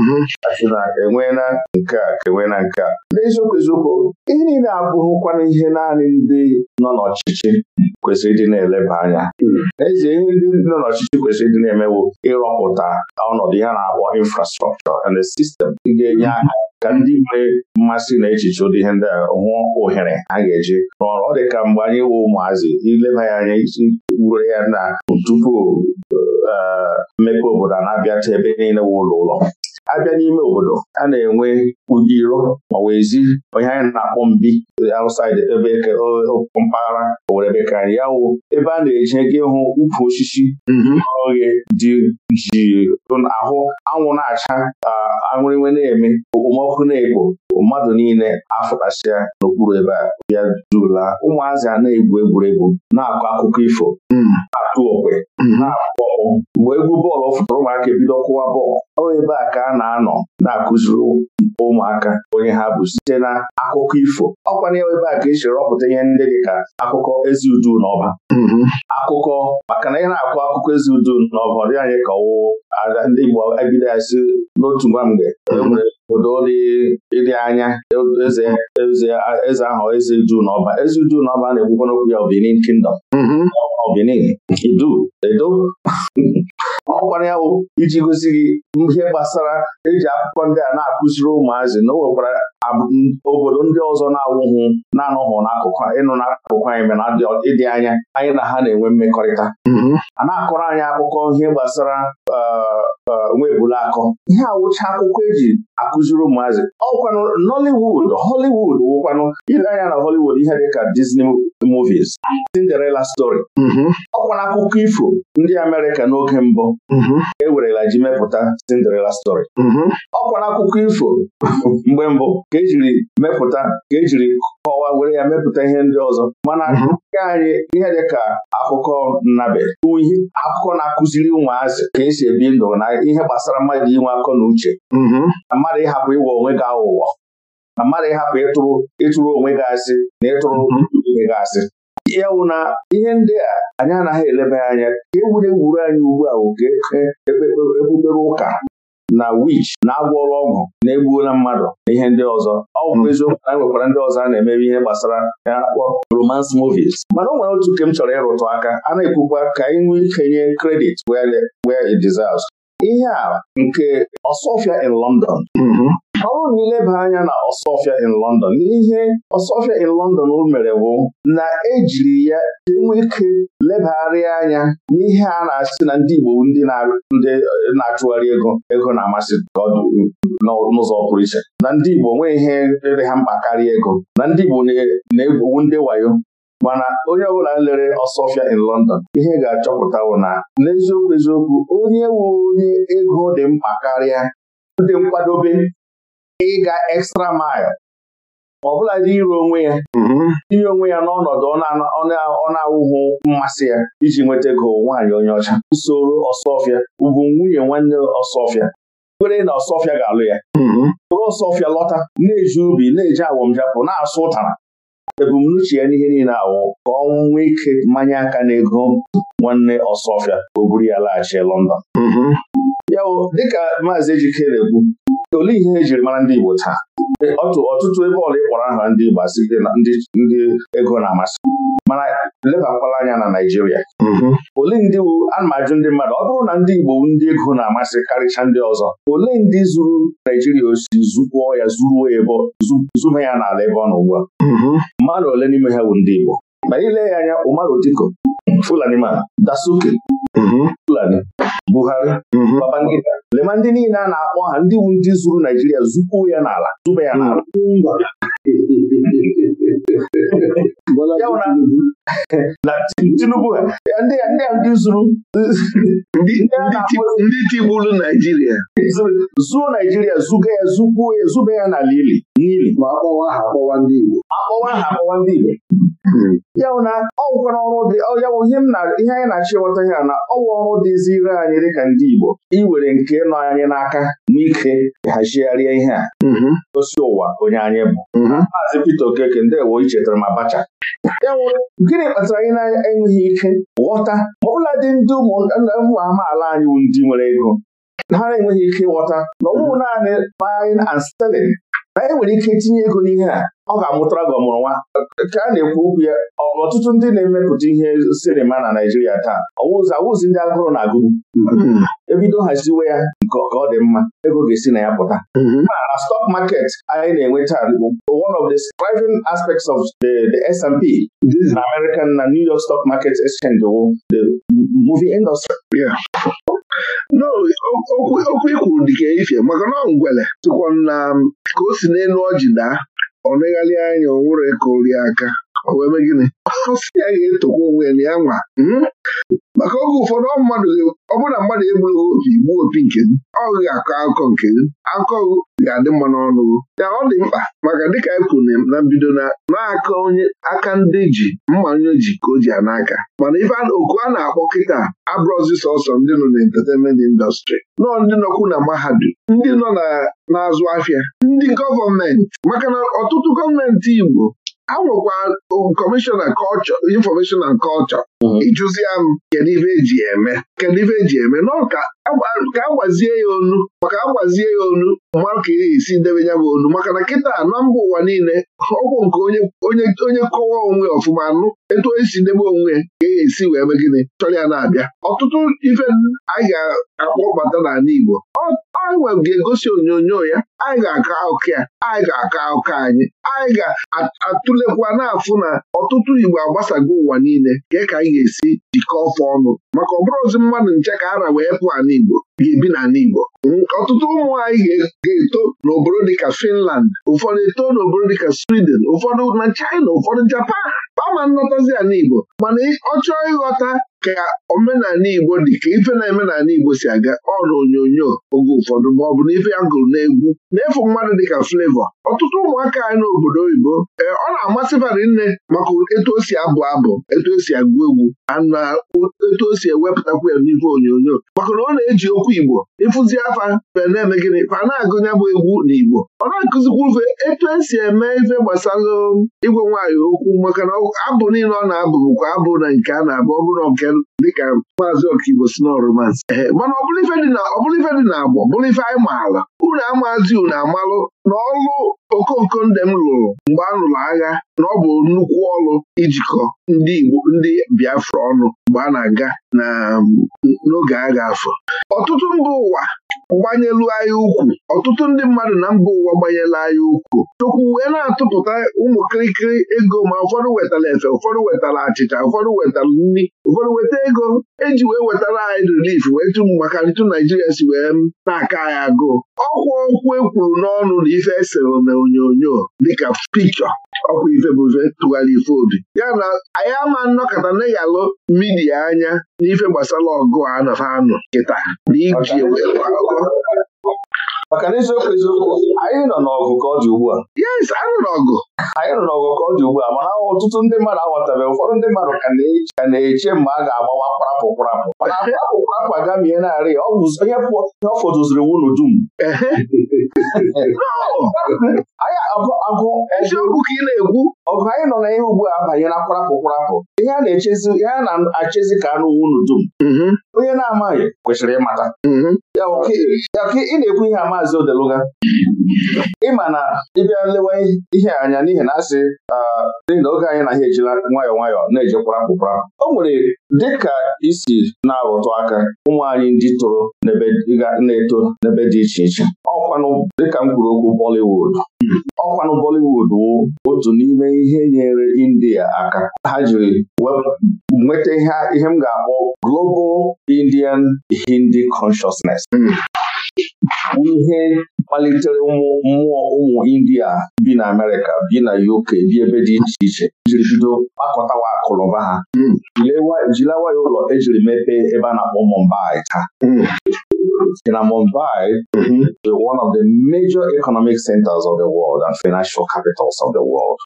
mhm. na enweela nke a ka enweela nke a n'eziokwu eziokwu ihe niile abụghịkwana ihe naanị ndị nọ n'ọchịchị kwesịrị ịdị na-eleba anya n'ezie hmm. ihe ndị nọ n'ọchịchị kwesịrị ịdị na-emewo ịrọpụta ọnọdụ ihe na-akpọ infrastrọkchọ and sistem ga-enye hmm. aka ka ndị nwere mmasị na echiche ụdị ihe ndị a hụ ohere a ga-eji ọrụ ọ dị ka mgbe anyị wụ ụmụazị ileba ya anya isi wure ya na tupu eh, mmepe obodo a na ta ebe niile wụ ụlọ ụlọ abịa n'ime obodo a na-enwe ugiro ma onye anyị na-akpọ mbi outside ebe mpaghara owere bekara ya wụ ebe a na-eji ego ịhụ ukwu osisi mhm. oghe dị ji ahụ anwụ na-acha aṅụrịnwe na-eme okpomọkụ na-ekpo mmadụ niile afụtasịa n'okpuru ebe a bịa ụmụazị a na-egwu egwuregwu na-akọ akụkọ ifo hmm. na-atụ okwe hmm. na mgbe egwu bọọlụ fụtara ụmụaka ebido kụwa bọọlụ ọ ebe a ka a na-anọ na-akụziri ụmụaka onye ha bụ site na akụkọ ifo Ọ ọkwanye ebe a ka esi rọpụta ihe ndị dị ka akụkọ ezi udu n'ọba. Hmm. akụkọ maka na ị na-akụ akụkọ ezi udu n'ọba ọ dị anyị ka ọwụwụ ndị Igbo ebido ya n'otu nwa mgbe obodo ịdị anya eze eze ahụ eze Juu na ọba eze Juu na ọba na-ekwukwana okwu ya Kingdom ọ mm-hmm. Benin Edo ọ ya iji gosi gị ihe gbasara eji akwụkwọ ndị a na-akụziri ụmụazị na o nwekwara obodo ndị ọzọ na-awụhụ na-anụhụ n'akụkụ ịnụ n'akụkụ anyị mere ịdị anya anyị na ha na-enwe mmekọrịta mm-hmm. a na-akọrọ anyị akụkọ ihe gbasara uh, uh, nwebula akọ ihe awụcha akwụkwọ eji akụziri ụmụazị ọkwanụ Nollywood Hollywood wụkwanụ ile anya na Hollywood ihe dịka Disney movies Cinderella story mm-hmm. ọkwana akụkọ ifo ndị Amerịka n'oge mbụ mm-hmm. ewerela ji mepụta Cinderella story ọkwana akụkọ ifo mgbe mbụ ka ejiri mepụta ka ejiri kọwaa were ya mepụta ihe ndị ọzọ mana mhm. nke anyị ihe dị ka akụkọ nnabe akụkọ na-akụziri ụmụazị ka esi ebi ndụ na ihe gbasara mmadụ inwe akọ na uche mhm. na mmadụ ịhapụ ịwa onwe gị aghụghọ na mmadụ ịhapụ ịtụrụ ịtụrụ onwe gị asị na ịtụrụ mhm. onwe gị asị ya na ihe ndị a anyị anaghị elebe anya ka egwuregwu anyị ugbu a oke e, e, e, ebubere ụka na wich na ọrụ ọgwụ na-egbuola mmadụ na ihe ndị ọzọ ọ bụ eziokwu na e nwekwara ndị ọzọ a na-emebe ihe gbasara ya akpọ romance movies mana o nwere otu nke m chọrọ ịrụtụ aka a na-ekwukwa ka anyị nwee ikenye credit where it deserves ihe a nke Ọsọfịa in London mm-hmm. ọ bụrụ na ileba anya na Ọsọfịa in London n'ihe Ọsọfịa in London mere bụ na ejiri ya enwe ike lebagharịa anya n'ihe a na-asị na ndị Igbo ndị na-achụgharị ego ego na-amasị ka ọ dị n'ụzọ pụrụ iche na ndị Igbo nwee ihe rere ha mkpa karịa ego na ndị Igbo na-egwu ndị wayo mana onye ọbụla lere Ọsọfịa in London ihe ga-achọpụtawo na n'eziokwu eziokwu onye wu onye ego dị mkpa karịa dị nkwadobe ịga extra mile ọ bụla dị ire onwe ya mm-hmm. inye onwe ya n'ọnọdụ ọ na-awụghị mmasị ya iji nweta ego nwaanyị onye ọcha usoro ọsọfịa ugwu nwunye nwanne ọsọfịa kwere na ọsọfịa ga-alụ ya bụrụ mm-hmm. ọsọfịa lọta na-eji ubi na-eji awọmjapụ na-asụ ụtara ebumnuche ya n'ihe niile awụ ka ọ nwee ike mmanya aka na ego nwanne ọsọfịa o buru ya laghachi London mm-hmm. ya dịka maazị Ejikere ekwu olee ihe ejiri mara ndị Igbo taa ọtụtụ ebe ọla ịkpọrọ aha ndị Igbo asị ndị ego na-amasị mana lebakwala anya na Naijiria. Mm-hmm. olee ndị ana ndị mmadụ ọ bụrụ na ndị Igbo ndị ego na-amasị karịcha ndị ọzọ olee ndị zuru naijiria osi zukwuo ya zuruo ya ebe zuba ya n'ala ebe ọ nọ ugbu a mm-hmm. mmadụ ole n'ime ha bụ ndị Igbo ma ile ya anya Umar Diko Fulani ma Dasuke Mm-hmm. Fulani Buhari Babangida mm-hmm. lema ndị niile a na-akpọ ha ndị wu ndị zuru Naijiria zupuo ya n'ala zụba ya n'ala mm-hmm. na ndị ndị ndị tigburu Naijiria zuo Naijiria zuga ya ya ili n'ili ma akpọwa ha akpọwa ndị Igbo akpọwa ha akpọwa ndị Igbo ya bụ na ọ nwụkwara ọrụ dị ya ihe anyị na-achọ ịghọta ya na ọnwụ ọrụ dịzi ire anyị dịka ndị Igbo iwere nke nọ anyị n'aka n'ike hazigharịa ihe a osi ụwa onye anyị bụ maazị Pita Okeke ndewo ichetara m Abacha gịnị kpatara anyị na-enweghị ike ghọta ma ụlọ dị ndị ụmụ amaala anyị bụ ndị nwere ego ha na-enweghị ike ghọta. na ọ naanị buying and selling anyị e nwere ike itinye ego n'ihe a ọ ga-amụtara gị ọmụrụ nwa ka a na-ekwu okwu ya ọtụtụ ndị na-emepụta ihe sinima na Naijiria taa ọwụzi awụzi ndị agụrụ na-agụ mm-hmm. ebido haziwe ya nke ọ dị mma ego ga-esi na ya pụta mm-hmm. na stọk market anyị na-enweta one of the driving aspects of the, the S&P na American na New York Stock Market Exchange wụ the movie industry okwu ikwuru dịka ifie maka na ngwele tụkwa na um, ka o si n'elu ọjị daa ọ negharịa anya o nwere ka aka o wee mee gịnị ọsị ya ga-etokwa onwe ya na ya nwa hmm? maka oge ụfọdụ mmadụ ọ bụrụ na mmadụ egbughị opi gbuo opi nke gị ọ ga-akọ akụkọ nke gị akụkọ ga-adị mma n'ọnụ ya ọ dị mkpa maka dịka anyị e kwuru na mbido na na onye aka ndị ji mmanya ji ka o ji n'aka mana ife oku a na-akpọ kịta abụrụzi sọsọ ndị nọ na entertainment indọstrị nọọ ndị nọkwu na mahadum ndị nọ na na-azụ afịa ndị gọọmenti maka na ọtụtụ gọọmenti Igbo a nwekwa kọmishọna kọlchọ infọmeshọn na kọlchọ mm-hmm. ịjụzia m kedu ibe eji eme kedu ibe eji eme nọ ka e agwazie e ya onu maka agwazie e ya onu ma ka e esi debe ya bụ onu maka na kịta na mba ụwa niile ọgwụ nke onye kọwa onwe ọfụma anụ. etu esi ndebe onwe ya ka esi wee mee gịnị chọrọ ya na-abịa ọtụtụ ife anyị ga-akpọbata n'ala Igbo anyị ga-egosi onyonyo ya anyị ga-akọ akụkọ ya anyị ga-akọ akụkọ anyị anyị ga-atụlekwa afụ na ọtụtụ Igbo agbasago ụwa niile ka e ka anyị ga-esi jikọọ ọfọ ọnụ maka ọ ozi mmadụ nche ka ara wee pụọ Igbo. bi n'ala Igbo ọtụtụ ụmụ anyị ga-eto n'obodo dịka Finland ụfọdụ eto n'obodo dịka Sweden ụfọdụ na China ụfọdụ Japan kpama nlọtazi ala Igbo mana ọ chọọ ịghọta ka omenala Igbo dị ka ife na-eme n'ala Igbo si aga ọrụ onyonyo oge ụfọdụ ma ọ bụ na ife ya gụrụ n'egwu na-efu mmadụ dịka Flevọ ọtụtụ ụmụaka anyị n'obodo oyibo ee eh, ọ na-amasị bara nne maka etu o si abụ abụ etu o si agụ egwu na etu o si ewepụtakwa ya n'ife onyonyo maka na ọ na-eji okwu Igbo ịfụzi afa na-eme gịnị fa na-agụ bụ egwu na Igbo ọ na-akụzikwa ufe etu esi eme ife gbasara igwe nwaanyị okwu maka na abụ niile ọ na-abụ bụkwa abụ na nke a na-abụ ọ bụrụ nke dịka maazị ọkaibo si ehe mana ọbụrụ ife dị na agba ife anyị maala unu amazi unu amalụ na ọlụ okooko ndị m lụrụ mgbe a lụrụ agha na ọ bụ nnukwu ọlụ ijikọ ndị Igbo ndị Biafra ọnụ mgbe a na-aga n'oge agha afọ ọtụtụ mba ụwa gbanyelu anyị ukwu ọtụtụ ndị mmadụ na mba ụwa gbanyela anyị ukwu chukwu wee na-atụpụta ụmụ kirikiri ego ma ụfọdụ wetara efe ụfọdụ wetara achịcha ụfọdụ wetara nri ụfọdụ weta ego eji wee wetara anyị rilif wee tụ maka ntụ naijiria si wee na-aka anyị agụụ ọkwa ọkwụ ekwuru n'ọnụ na ife esere na onyonyo dịka pikchọ ọkwa ife bụ ife tụgharị ife obi ya na anyị ama nnọkọta na-eyalụ midia anya n'ife gbasara ọgụ a nafa anụ kịta na iji maka na eziokwu eziokwu anyị nọ n'ọgụ ka ọ dị ugbu a yes anyị nọ n'ọgụ anyị nọ n'ọgụ ka ọ dị ugbu a mana ọtụtụ ndị mmadụ aghọtabeghị ụfọdụ ndị mmadụ ka na-eche mgbe a ga-agbawa kparapụ kparapụ mana kparapụ kparapụ agamie narị onye ọ fọdụziri wunu dum eziokwu ka ị na-ekwu ọgụ anyị nọ n'ihe ugbu a abanye na kparapụ kparapụ ihe a na-achezi ka anụ wunu dum mhm. onye na-amaghị kwesịrị ịmata mhm. ya ka ị na-ekwu ihe a maazị Odeluga ịma na ịbịa lewa ihe anya n'ihi na asị ah, n'ihi na oge anyị na ha ejila nwayọ nwayọọ na-ejekwara mkpụkpara o nwere dịka isi na-arụtụ aka ụmụ anyị ndị toro na-eto n'ebe dị iche iche ọkwanụ dịka m kwuru okwu Bollywood ọkwanụ Bollywood wụ otu n'ime ihe nyere India aka ha jiri nweta ihe m ga-akpọ Global Indian Hindi Consciousness hmm. ihe kpalitere mmụọ ụmụ India bi na Amerịka bi na UK bi ebe dị iche iche jiri bido kpakọtawa akụnụba ha hmm. jilewa ya ụlọ ejiri mepee ebe a na-akpọ Mumbai taa hmm. in Mumbai mm-hmm. one of the major economic centers of the world and financial capitals of the world.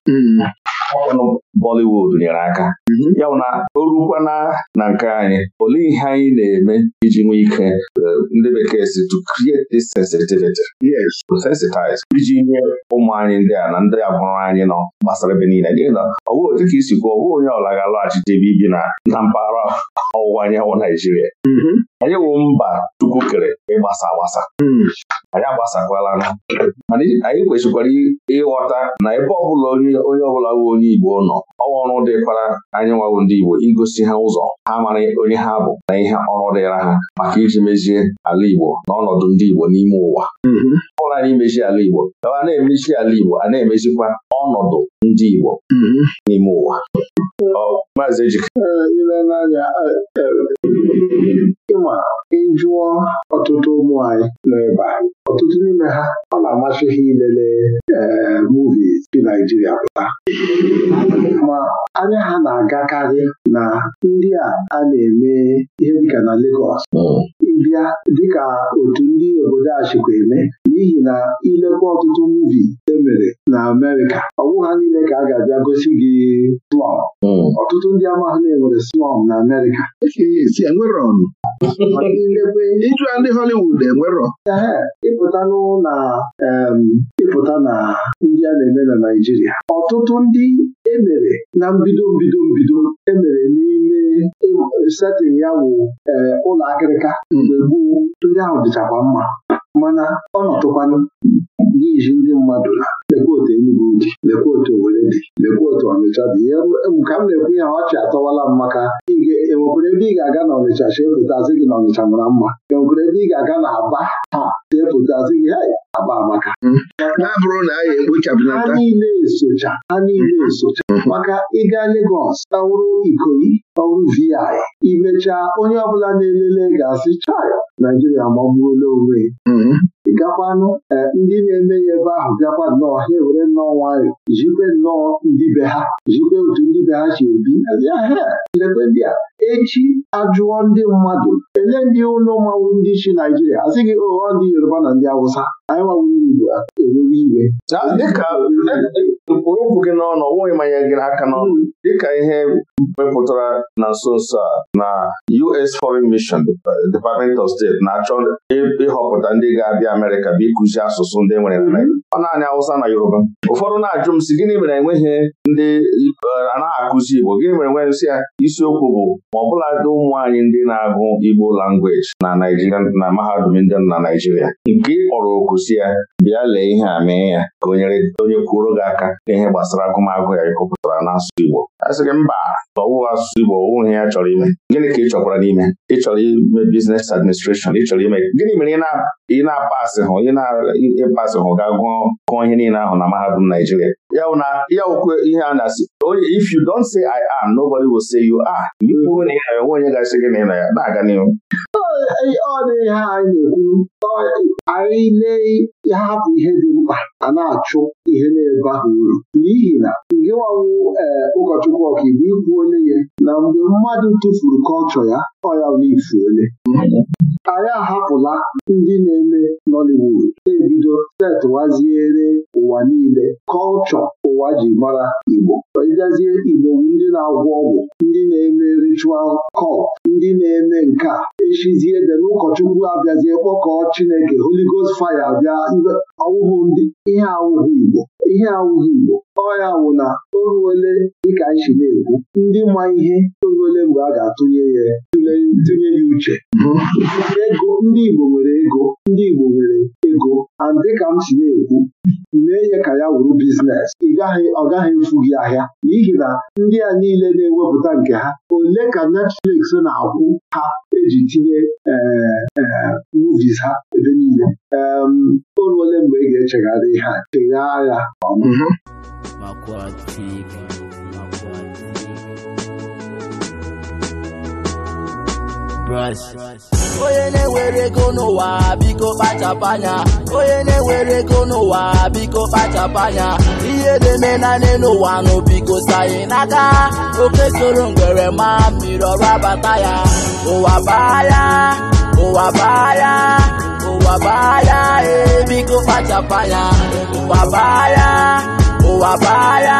ọkpọnụ mm-hmm. Bollywood nyere aka mm-hmm. ya bụ na o rukwana na nke anyị olee ihe anyị na-eme iji nwee ike eh, ndị bekee si to create this sensitivity yes to sensitize iji nye ụmụ anyị ndị a na ndị agbụrụ anyị nọ gbasara ebe niile n'ihi na ọ bụghị dịka isi kwuo ọ bụghị onye ọla ga-alọghachite ebe ibi na na mpaghara ọwụwa anyanwụ Naijiria mm-hmm. anyị wụ mba Chukwu kere ịgbasa agbasa hmm. anyị agbasakwala mana anyị kwesịkwara ịghọta na ebe ọbụla onye ọbụla bụ onye Igbo nọ ọwa ọrụ dịkwara anyị nwawụ ndị Igbo igosi ha ụzọ ha mara onye ha bụ na ihe ọrụ dịra ha maka iji mezie ala Igbo na ọnọdụ ndị Igbo n'ime ụwa hmm. ọ anyị mezie ala Igbo a na-emezi ala Igbo a na-emezikwa ọnọdụ ndị Igbo hmm. n'ime ụwa Maazị Ejike. ile e, e, ịma ịjụọ ọtụtụ ụmụ anyị nọ ebe ọtụtụ n'ime ha ọ na-amasị ha ilele ee dị Naijiria pụta ma anya ha na-agakarị na ndị a na-eme ihe dịka na Legọs hmm. bịa dịka otu ndị obodo a eme n'ihi na ilekwa ọtụtụ muuvi emere na Amerịka ọ bụghị niile ka a ga-abịa gosi gị slọm hmm. ọtụtụ ndị amaghị na-enwere slọm na Amerịka iju ndị Hollywood enwerọ ịpụta na ịpụta na ndị a na-eme na Naijiria. ọtụtụ ndị emere na mbido mbido mbido emere n'ime setịn ya wụ eh, ụlọ akịrịka mgbe gboo ndị ahụ dịchakwa mma mana ọ nọtụkwanụ iji ndị mmadụ na lekwa otu Enugu dị lekwa otu dị lekwa otu Ọnịcha dị ka m na-ekwu ya ọchị atọwala m maka enwekwere ebe ị ga-aga na Ọnịcha chepụtasị gị na Ọnịcha mara mma enwekwere ebe ị ga-aga na Aba ha chepụtasị gị Aba amaka na-abụrụ hmm. na niile esocha ha niile hmm. esocha hmm. maka ịga Legọs ọwụrụ Ikoyi ọwụrụ VI imechaa onye ọbụla na-elele ga-asị chaya Naijiria magburu onwe ịgakwanụ eh, ndị na-eme si ebe ahụ bịakwa nnọọ ha ewere nnọọ nwayọọ jikwe nnọọ ndị be ha jikwe otu ndị be ha si ebi lekwe ndị a echi ajụọ ndị mmadụ ele ndị ụlọ mmanwụ ndị chi Naijiria a sị gị ụghọ oh, ndị Yoruba na ndị Awụsa anyị nwanwụ ndị Igbo eruru iwe dịka okwu gị n'ọnụ nweghị manye gị n'aka n'ọnụ hmm. dịka ihe mepụtara na nso nso a na US Foreign Mission Department of State na-achọ ịhọpụta ndị ga-abịa Amerika bụ ịkụzi asụsụ ndị e nwere hmm. ọ naanị Awụsa na Yoruba ụfọdụ na-ajụ m sị gịnị mere enweghị ndị anaghị akụzi Igbo gịnị mere enweghị nsị ya isiokwu bụ ma ọ bụladị ụmụ anyị ndị na-agụ Igbo langweji na Naijiria na mahadum ndị na Naijiria nke ị kpọrọ oku ya bịa lee ihe a mee ya ka onye kwuoro gị aka n'ihe gbasara agụmagụ ya ịkọpụtara n'asụsụ Igbo a gị mba ọwụ asụsụ Igbo ọwụ ya chọrọ ime gịnị ka ị chọkwara n'ime ị chọrọ ime biznes administreshọn ị chọrọ ime gịnị mere ị na-apasị hụ ị hụ ga gụọ ihe niile ahụ na mahadum Naijiria ya okwe ihe a na-asị if you don't say I am nobody will say you are bụ na ị onwe onye ga-asị gị na ị ya na-aga n'ihu ọ dịghị, ihe anyị na-ekwu anyị lee ha ihe dị mkpa a na-achụ ihe na-ebe ahụ uru n'ihi na nke nwanwụ ee ụkọchukwu ọkaiwu ikwu onye ya na mgbe mmadụ tụfuru kọlchọ ya ọya ifu ole anyị ahapụla ndị na-eme Nollywood ebido setụwaziere ụwa niile kọlchọ ụwa ji mara Igbo ịgazie Igbo ndị na-agwọ ọgwụ ndị na-eme ritual cult ndị na-eme nke a echizie ede n'ụkọchukwu abịazie kpọkọ Chineke Holigos Faya abịa ọwụhụ ndị ihe awụghị Igbo ihe awụghị Igbo ọya wụ na o dịka anyị na-ekwu ndị ma ihe toruole mgbe a ga-atụnye ya tụnye ya uche ego ndị Igbo nwere ego ndị Igbo nwere ego and dịka m si na-ekwu wuru biznes ọ gaghị mfu gị ahịa n'ihi na ndị a niile na-ewepụta nke ha ole ka Netflix na-akwụ ha eji tinye e, e, movies ha ebe niile oru ole mgbe ị ga-echegharị ha chegharịa ọma mhm. onye na-ewere ego n'ụwa biko kpachapụ anya onye na-ewere ego n'ụwa biko kpachapụ anya ihe na naanị n'ụwa nụ biko sayị n'aka oke soro ngwere ma mmiri ọrụ abata ya ụwa baa ya ụwa baa ya ụwa baa ya ee biko kpachapụ anya ụwa baa ya ụwa baa ya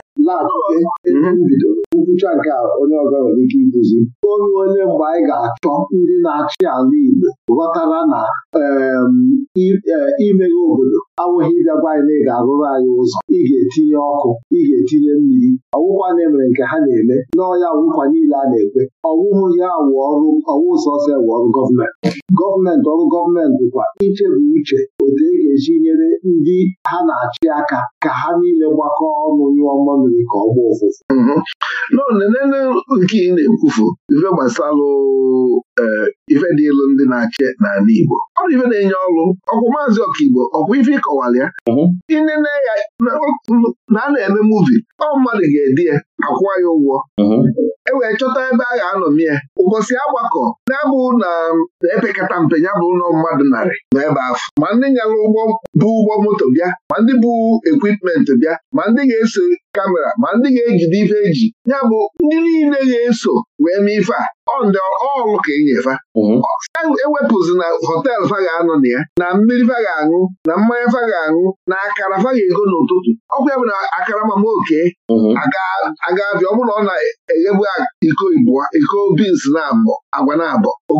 na-atụte ebe nkwụcha nke onye ọzọ nwere ike iduzi onye onye mgbe anyị ga-achọ ndị na-achị ala Igbo ghọtara na e, imeghe obodo anwụghị ịbịa gwa anyị na ị ga-arụrụ anyị ụzọ ị ga-etinye ọkụ ị ga-etinye mmiri ọwụkwa na-emere nke ha na-eme n'ọya ọwụkwa niile a na-ekwe ọwụhụ ya ọwụ sọsọ ewu ọrụ gọọmenti gọọmenti ọrụ gọọmenti kwa iche bụ uche obodo e ga-eji nyere ndị ha na-achị aka ka ha niile gbakọ ọnụ nyụọ mmamiri ka ọ gbaa ụfụfụ mhm. n'onene nke ị na-ekwufu ife gbasalụ e, ife dị ndị na-achị n'ala Igbo ọ ife na-enye ọrụ ọkwụ maazị ọkaigbo ọkwụ ife ịkọwara ya inene mhm. ya na a na-eme muvi ọ mmadụ ga-edi ya akwụwa ya ụgwọ mhm. e wee chọta ebe a ga-anọmi ya ụbọchị agbakọ na-abụ na um, epekata mpe ya bụ ụlọ mmadụ narị na ebe afọ ma ndị nyara ụgbọ bụ ụgbọ moto bịa ma ndị bụ ekwipment bịa ma ndị ga-eso kamera ma ndị ga-ejide ife eji ya bụ ndị niile ga-eso wee mee ife a ọndị ọlụ ka enyefa mhm. ewepụzi na họteelụ fa ga-anọ na ya na mmiri fa ga-aṅụ na mmanya fa ga-aṅụ na akara fa ga-ego n'ụtụtụ ọkwa ya bụ na akara mama oke mhm. aga ọ bụrụ na ọ na-eghebu iko ibụa iko bins na-abọ agwa na-abọ o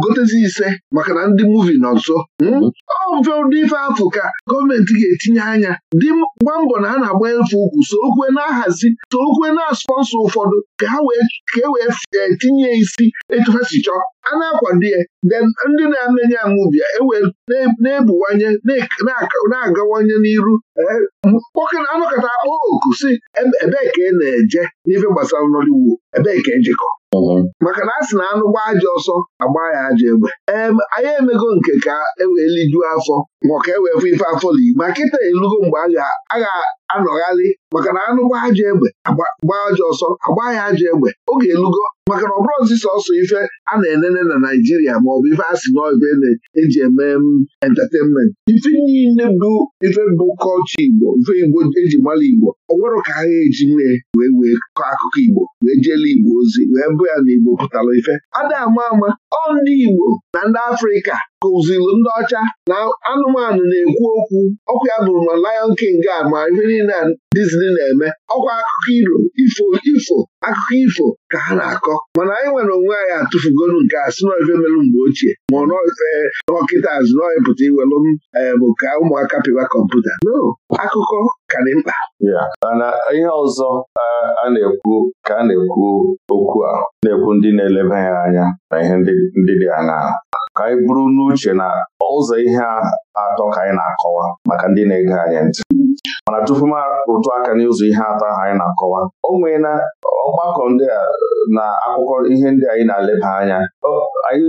ise maka na ndị muuvi nọ nso hmm? mhm. ọmfe ụdị ife afụ ka gọọmenti ga-etinye anya dị mgba mbọ na a na-agba efe ukwu so okwe na-ahazi so okwe na-asọnsọ ụfọdụ ka e wee eh, tinye isi etu ha si chọọ a na-akwado ya then ndị na-anenye anwụbịa ewe na-ebuwanye na-agawanye n'iru eh, anọkọta akpọ oku si ebee ka ị na-eje n'ife gbasara Nollywood ebee ka ejikọ maka na a sị na anụ gbaa aja ọsọ agba ya aja egbe anyị emego nke ka ewee lijuo afọ ma ka ewee fụ ife afọ ma kịta elugo mgbe a ga-anọgharị maka na anụ gbaa aja egbe gbaa aja ọsọ agba ya aja egbe oge elugo maka na ọbụrụ bụrụzi sọsọ ife a na-enene na Naịjirịa bụ ife a sị na ife na-eji eme entertainment ife niile bụ ife bụ kọlchọ Igbo ife Igbo eji mara Igbo ọ nwere ka ha eji mee wee wee kọọ akụkọ Igbo wee jele Igbo ozi wee bụ ya na pụtara ife ada ama ama ọ ndị Igbo na ndị Afrịka kụzilu ndị ọcha na anụmanụ na-ekwu okwu ọkwa ya bụrụ na Lion King a ma ihe niile na Disney na-eme ọkwa akụkọ iro ifo ifo akụkọ ifo ka ha na-akọ mana anyị nwere onwe anyị atụfugolu nke a si n'ife melụ mgbe ochie ma ọ nọkịta e, azụnọịpụta iwelụ m e, bụ ka ụmụaka pịwa kọmputa no akụkọ ka dị mkpa mana ihe ọzọ a na-ekwu ka a na-ekwu okwu a na-ekwu ndị na-eleba ya anya na ihe ndị dị aṅaa ka anyị bụrụ n'uche na ụzọ ihe atọ ka anyị na-akọwa maka ndị na-ege anyị ntị mana tupu m rụtụ aka n'ụzọ ihe atọ ahụ anyị na-akọwa o nwee na ọgbakọ ndị a na akụkọ ihe ndị anyị na-eleba anya anyị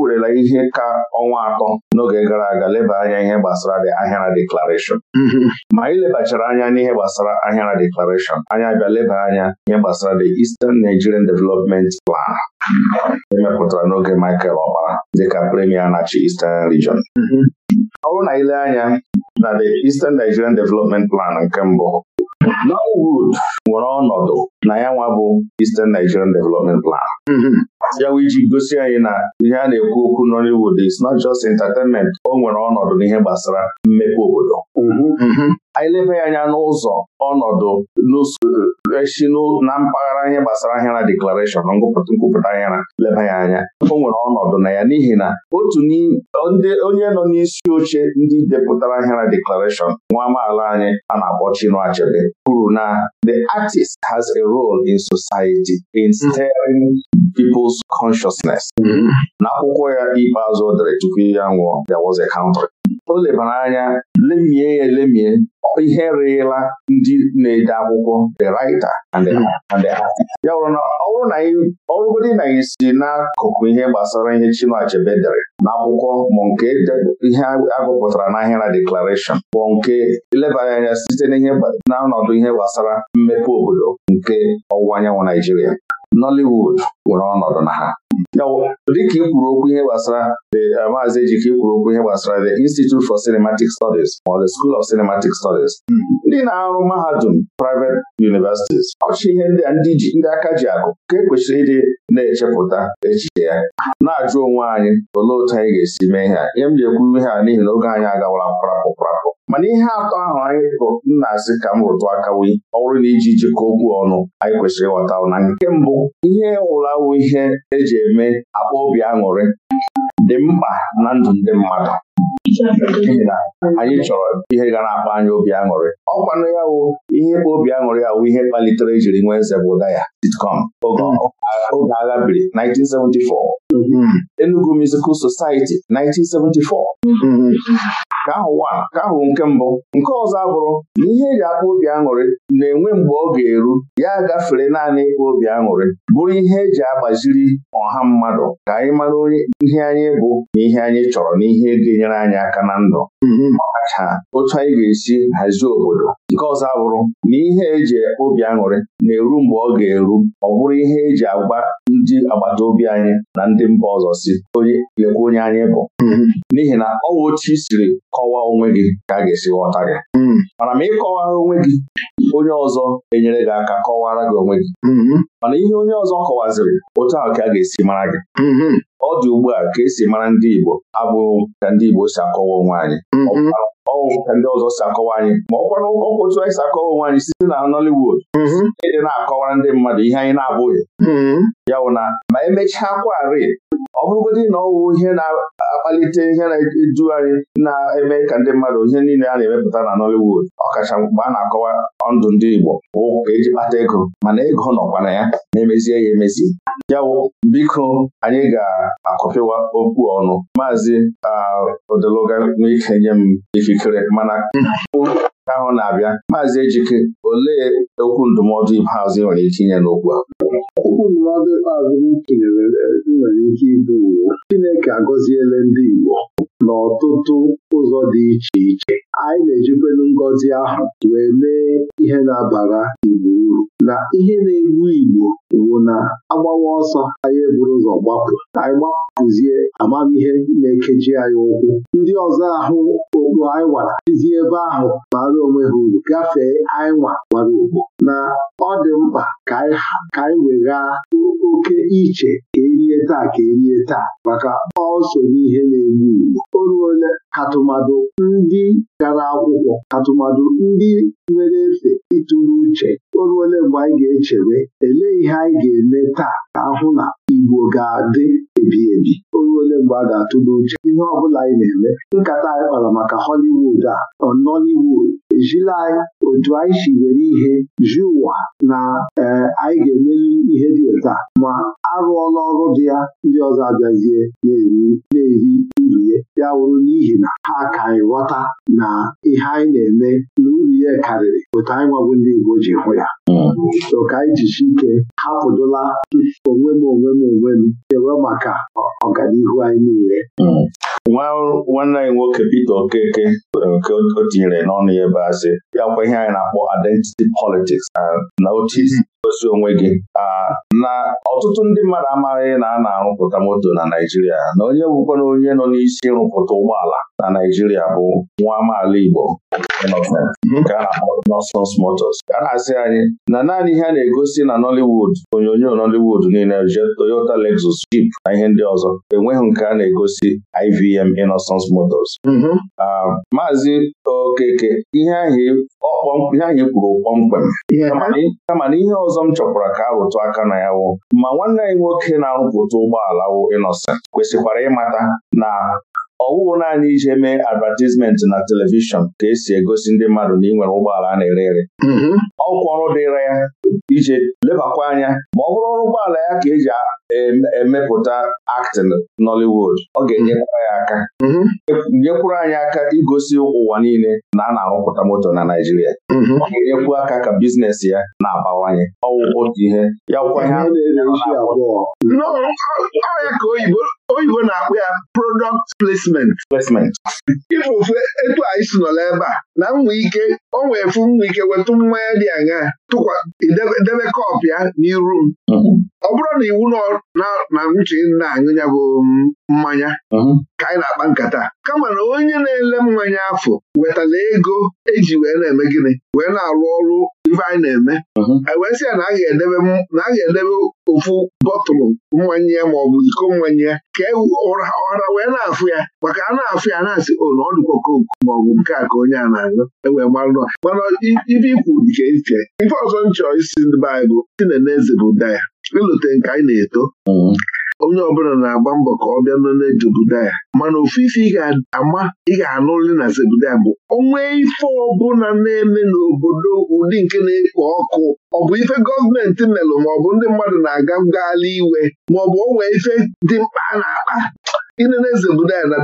werela ihe ka ọnwa atọ n'oge gara aga leba anya ihe gbasara Ahịara Deklarashọn. Mm-hmm. ma anyị lebachara anya n'ihe gbasara Ahịara Deklarashọn. anyị abịa leba anya ihe gbasara the Eastern Nigerian Development Plan mm-hmm. emepụtara n'oge Michael Okpara dịka premier na-achị Eastern Region mm-hmm. ọ bụrụ na ile anya na the Eastern Nigerian Development Plan nke mbụ Norwood nwere ọnọdụ na ya nwa bụ Eastern Nigerian Development Plan mm-hmm. ya wụ iji gosi anyị na ihe a na-ekwu okwu Nollywood is not just entertainment o nwere ọnọdụ n'ihe gbasara mmepe obodo mhm. Mhm. anyị ya anya n'ụzọ ọnọdụ esi na mpaghara ihe gbasara ahịara deklarashọn nkwupụta ahịara leba ya anya o nwere ọnọdụ na ya n'ihi na otu onye nọ n'isi oche ndị depụtara ahịara deklarashọn nwa amaala anyị a na-akpọ Chinua Achebe kwuru na the artist has a role in society in steering people's consciousness. Mhm. n'akwụkwọ ya ikpeazụ dere tupu ya nwụọ ụzọ kaụntrị o lebara anya lemie ya ihe rịla ndị na-ede akwụkwọ the writer hmm. ya bụrụ na ọ na anyị si n'akụkụ ihe gbasara ihe chinachebe dere na akwụkwọ ma nke ihe agụpụtara n'ahịra deklarashọn bụ nke elebara anya site n'ọnọdụ ihe gbasara mmepe obodo nke ọwụwa anyanwụ Naijiria Nollywood nwere ọnọdụ na ha dịka ikwuru okwu ihe gbasara eh, maazị Ejike ikwuru okwu ihe gbasara the Institute for Cinematic Studies ma ọ the School of Cinematic Studies ndị na-arụ mahadum private universities ọchị ihe ndị ndị aka ji akụ ka e kwesịrị ịdị na-echepụta echiche ya na-ajụ onwe anyị olee otu anyị ga-esi mee ihe ihe m ji ekwu ihe a n'ihi na oge anyị agawala mkparapụ mkparapụ mana ihe atọ ahụ anyị nna asị ka m rụtụ akawi ọ bụrụ na iji jikọ okwu ọnụ anyị kwesịrị ịghọta na nke mbụ ihe wụlawụ ihe eji eme akpa obi aṅụrị dị mkpa na ndụ ndị mmadụ anyị chọrọ ihe ga na-akpa anyị obi aṅụrị ọkwanụ ya wụ ihe bụ obi aṅụrị ya wụ ihe kpalitere jiri nwee nzebụ ụda ya sitcom oge agha biri 1974 hmm. Enugu Musical Society 1974 ka ahụ ka ahụ nke mbụ nke ọzọ abụrụ na ihe eji akpa obi aṅụrị na-enwe mgbe ọ ga-eru ya gafere naanị ịkpa obi aṅụrị bụrụ ihe eji agbaziri ọha mmadụ ka anyị mara onye ihe anyị bụ na ihe anyị chọrọ na ihe ga-enyere anyị aka na ndụ mm-hmm. ọkacha otu anyị ga-esi hazie obodo nke ọzọ bụrụ na ihe eji obi aṅụrị na-eru mgbe ọ ga-eru ọ bụrụ ihe eji agwa ndị agbata obi anyị na ndị mba ọzọ si onye lekwa onye anyị bụ mm-hmm. n'ihi na ọ otu i siri kọwaa onwe gị ka a ga-esi ghọta gị mm-hmm. mana ma ịkọwara onwe gị onye ọzọ enyere gị aka kọwara gị onwe gị mana ihe onye ọzọ kọwaziri otu ahụ ka a ga-esi mara gị mm-hmm. ọ dị ugbu a ka esi mara ndị Igbo abụghị ka ndị Igbo si akọwa onwe anyị mm-hmm. ọwụ ka ndị ọzọ si akọwa anyị ma ọ kwanụ otu anyị si akọwa onwe anyị site na Nollywood mm-hmm. ịdị na-akọwara ndị mmadụ ihe anyị na-abụghị ya wụ na ma emechaa kwarị ọ bụrụgodị na ọwụ ihe na-akpalite ihe na-eju anyị na-eme ka ndị mmadụ ihe niile a na-emepụta na Nollywood ọkacha mgbe a na-akọwa ndụ ndị Igbo ụka ka eji kpata ego mana ego nọkwa na ya na-emezie ya emezi ya wụ biko anyị ga-akọpịwa okwu ọnụ maazị odeloga n'ike nye m ikikere mana mm. ahụ na-abịa maazị Ejike olee okwu ndụmọdụ ikpeazụ ị nwere ike inye n'okwu a okwu ndụmọdụ ikpeazụ m tinyere e, nwere ike ịbụ Chineke agọziela ndị Igbo n'ọtụtụ ụzọ dị iche iche anyị na-ejikwelu ngọzi ahụ wee mee ihe na-abara Igbo uru na ihe na-egbu Igbo wụ na agbawa ọsọ anyị eburu ụzọ gbapụ anyị gbapụzie amamihe na-ekeji anyị ụkwụ ndị ọzọ ahụ okpu anyị wara tizi ebe ahụ bara onwe ha uru gafee anyị nwa gbara okpu na ọ dị mkpa ka anyị weghaa oke iche taa ka erie taa maka ọso n'ihe na-egbu Igbo o ruole katụmadụ ndị gara akwụkwọ katụmadụ ndị nwere efe ịtụrụ uche o ruole mgbe anyị ga-echere elee ihe anyị ga-eme taa ka ahụ na Igbo ga-adị ebi ebi oge ole mgbe a ga atụ n'uche, ihe ọ bụla anyị na-eme nkata anyị kpara maka Hollywood a Nollywood ejila anyị otu anyị si were ihe ji ụwa na e, anyị ga-emeli ihe dị ụta ma arụọla ọrụ dị ya ndị ọzọ abịazie na-eri uru ya ya wụrụ n'ihi na ha ka anyị ghọta na ihe anyị na-eme ya karịrị otu anyị nwabụ ndị Igbo ji hụ ya ka anyị jichi ike hapụdola onwe m onwe m onwe m chewe maka ọganihu anyị niile nwanne anyị nwoke Peter Okeke nke o tinyere n'ọnụ ya ebe asị bịakwa ihe anyị na-akpọ identity politics na otu idozi onwe gị na ọtụtụ ndị mmadụ amaghị na a na-arụpụta moto na Naijiria na onye bụkwa na onye nọ n'isi ịrụpụta ụgbọala na Naijiria bụ nwa amaala Igbo nke a na-akpọ Nonsense Motors a na-asị anyị na naanị ihe a na-egosi na Nollywood onyonyo Nollywood niile Toyota Lexus Jeep na ihe ndị ọzọ enweghị nke a na-egosi IVM Innocence Motors mm-hmm. Maazị Okeke ihe ahụ e, e kwuru kpọmkwem kama na ihe ọzọ m chọpụtara ka arụtụ aka na ya wụ ma nwanne anyị nwoke na-arụpụta ụgbọala wụ Innocent kwesịkwara ịmata na ọwụwụ naanị ije mee advertisement na telivishọn ka esi egosi ndị mmadụ na ị nwere ụgbọala a na-ere ere mm-hmm. ọkwa ọrụ dịra ya ije lebakwa anya ma ọ bụrụ ọrụ ụgbọala ya ka eji emepụta Actin Nollywood ọ ga-enyekwara ya aka mm-hmm. nyekwuru anyị aka igosi ụwa niile na a na-arụpụta moto na Naịjirịa mm-hmm. ọ ga-enyekwu aka ka biznes ya na-abawanye ọwụ otu ihe ya ka oyibo oyibo na akpụ ya product placement ife ofe etu anyị si nọla ebe a na nwa ike o nwee fụ nwa ike wetụ mmanya dị aṅa tụkwa debe kọp ya n'iru m mm-hmm. ọ bụrụ na iwu na uche na-aṅụ ya bụ um, mmanya ka anyị na-akpa nkata kama na onye na-ele mmanya afọ wetala ego eji wee na-eme gịnị wee na-arụ ọrụ ife anyị na-eme mhm. wee sị ya na a ga-edebe ofu bọtụlụ ma ya maọbụ iko mmanya ya ka ụra e ọra wee na-afụ ya maka a na-afụ ya na-asị olu oh, ọ dịkwa maọbụ nke a ka onye a na-aṅụ ewee marụ mana ibe ikwu dịka iche ife ọzọ nchọ isi ndị baịbụl si na eze bụ daya ịlụte nke anyị na-eto mhm. onye ọbụla na-agba mbọ ka ọ bịa nọle Jebudaya mana ofu ife ị ga-ama ị ga-anụrị na Zebudaya bụ onwe ife ọbụla na-eme n'obodo ụdị nke na-ekpo ọkụ ọ bụ ife gọọmenti melụ maọbụ ndị mmadụ na-aga ngagharị iwe maọbụ onwe ife dị mkpa na-akpa na eze ndụdaya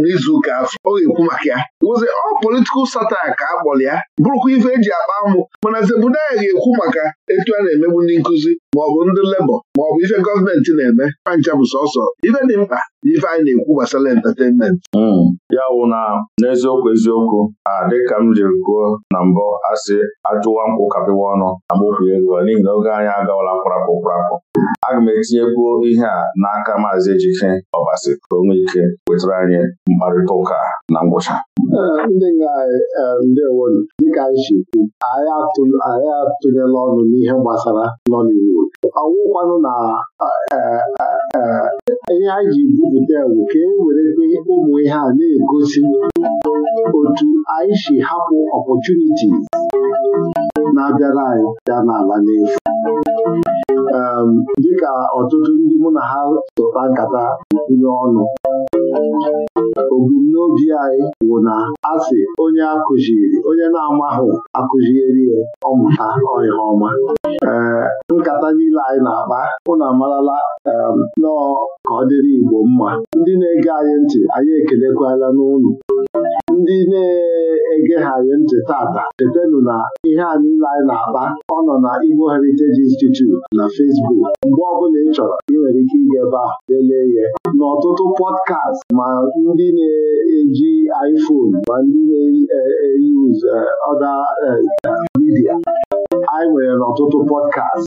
n'izu ụka afọ ọ ga-ekwu maka ya wụzi ọ politikal satire ka a kpọrọ ya bụrụkwa ife eji akpa amụ mana ya ga-ekwu maka etu a na-emegbu ndị nkụzi maọbụ ndị lebọ maọbụ ife gọọmenti na-eme pancha bụ sọsọ ife dị mkpa ife anyị na-ekwu gbasara entertainment hmm. ya wụ na n'eziokwu eziokwu a dịka m jiri kwuo na mbụ asị ajụwa nkwụ kapịwa ọnụ agbokwu ego n'ihi na oge anyị agawala kwarapụ kwarapụ aga m etinyekwu ihe a n'aka maazị Ejike Ọbasi ka ike wetara anyị mkparịta ụka na ngwụcha ndị e, ndewo dịka anyị si kwu anyị atụnyela ọnụ n'ihe gbasara Nollywood Ọnwụkwanụ na e, e, ihe anyị ji bupụta ewu ka e were ụmụ ihe a na-egosi otu anyị si hapụ ọpọchunitis na-abịara anyị bịa n'ala n'efu Um, dịka ọtụtụ ndị mụ na ha sụta nkata ndị ọnụ obumnobi anyị bụ na asị onye akụziri onye na-amahụ akụziri ya ọmụta ihe ọma um, nkata niile anyị na-akpa ụnụ amarala um, nọọ ka ọ dịrị Igbo mma ndị na-ege anyị ntị anyị ekelekwala n'ụlọ ndị na-egegharị ntị tata chetanụ na ihe a niile anyị na-akpa ọ nọ na Igbo Heritage Institute na Facebook mgbe ọbụla ị chọrọ ị nwere ike ịga ebe a lelee ya n'ọtụtụ pọdkast ma ndị na-eji iPhone ma ndị na-eyuz ọda midia anyị nwere n'ọtụtụ pọdkast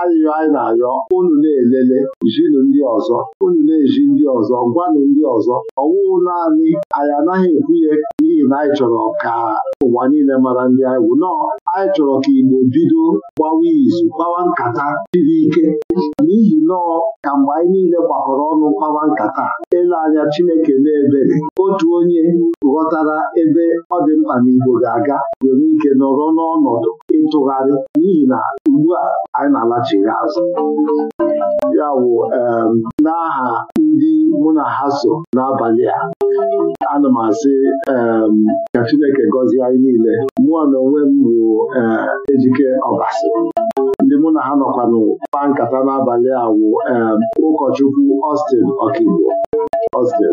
ayụyọ ah, anyị na-ayọ unu na-elele jinụ ndị ọzọ unu na-eji ndị ọzọ gwanụ ndị ọzọ ọwụwụ naanị anyị anaghị ekwunye n'ihi na anyị chọrọ ka ụwa niile mara ndị anyị wu anyị chọrọ ka Igbo bido gbawa izu gbawa nkata siri ike n'ihi nọọ ka mgbe anyị niile gbakọrọ ọnụ gbawa nkata ele anya Chineke na-ebere otu onye ghọtara ebe ọ dị mkpa na Igbo ga-aga nwere ike nọrọ n'ọnọdụ ịtụgharị n'ihi na ugbu a anyị na-alachighị azụ ya wụ n'aha mụ na ha so n'abalị a ana m asị ka Chineke gọzie anyị niile mụ na onwe m bụ ejike ọbasi ndị mụ na ha nọkwanụ kpa nkata n'abalị a wụ um, ụkọchukwu Austin Okigbo Austin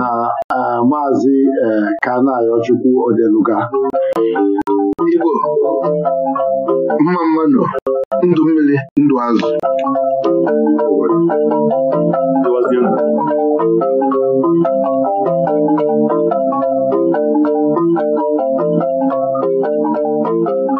na uh, maazị uh, Kanayochukwu Odeluga Igbo mma mmanụ ndụ mmiri ndụ azụ Thank you.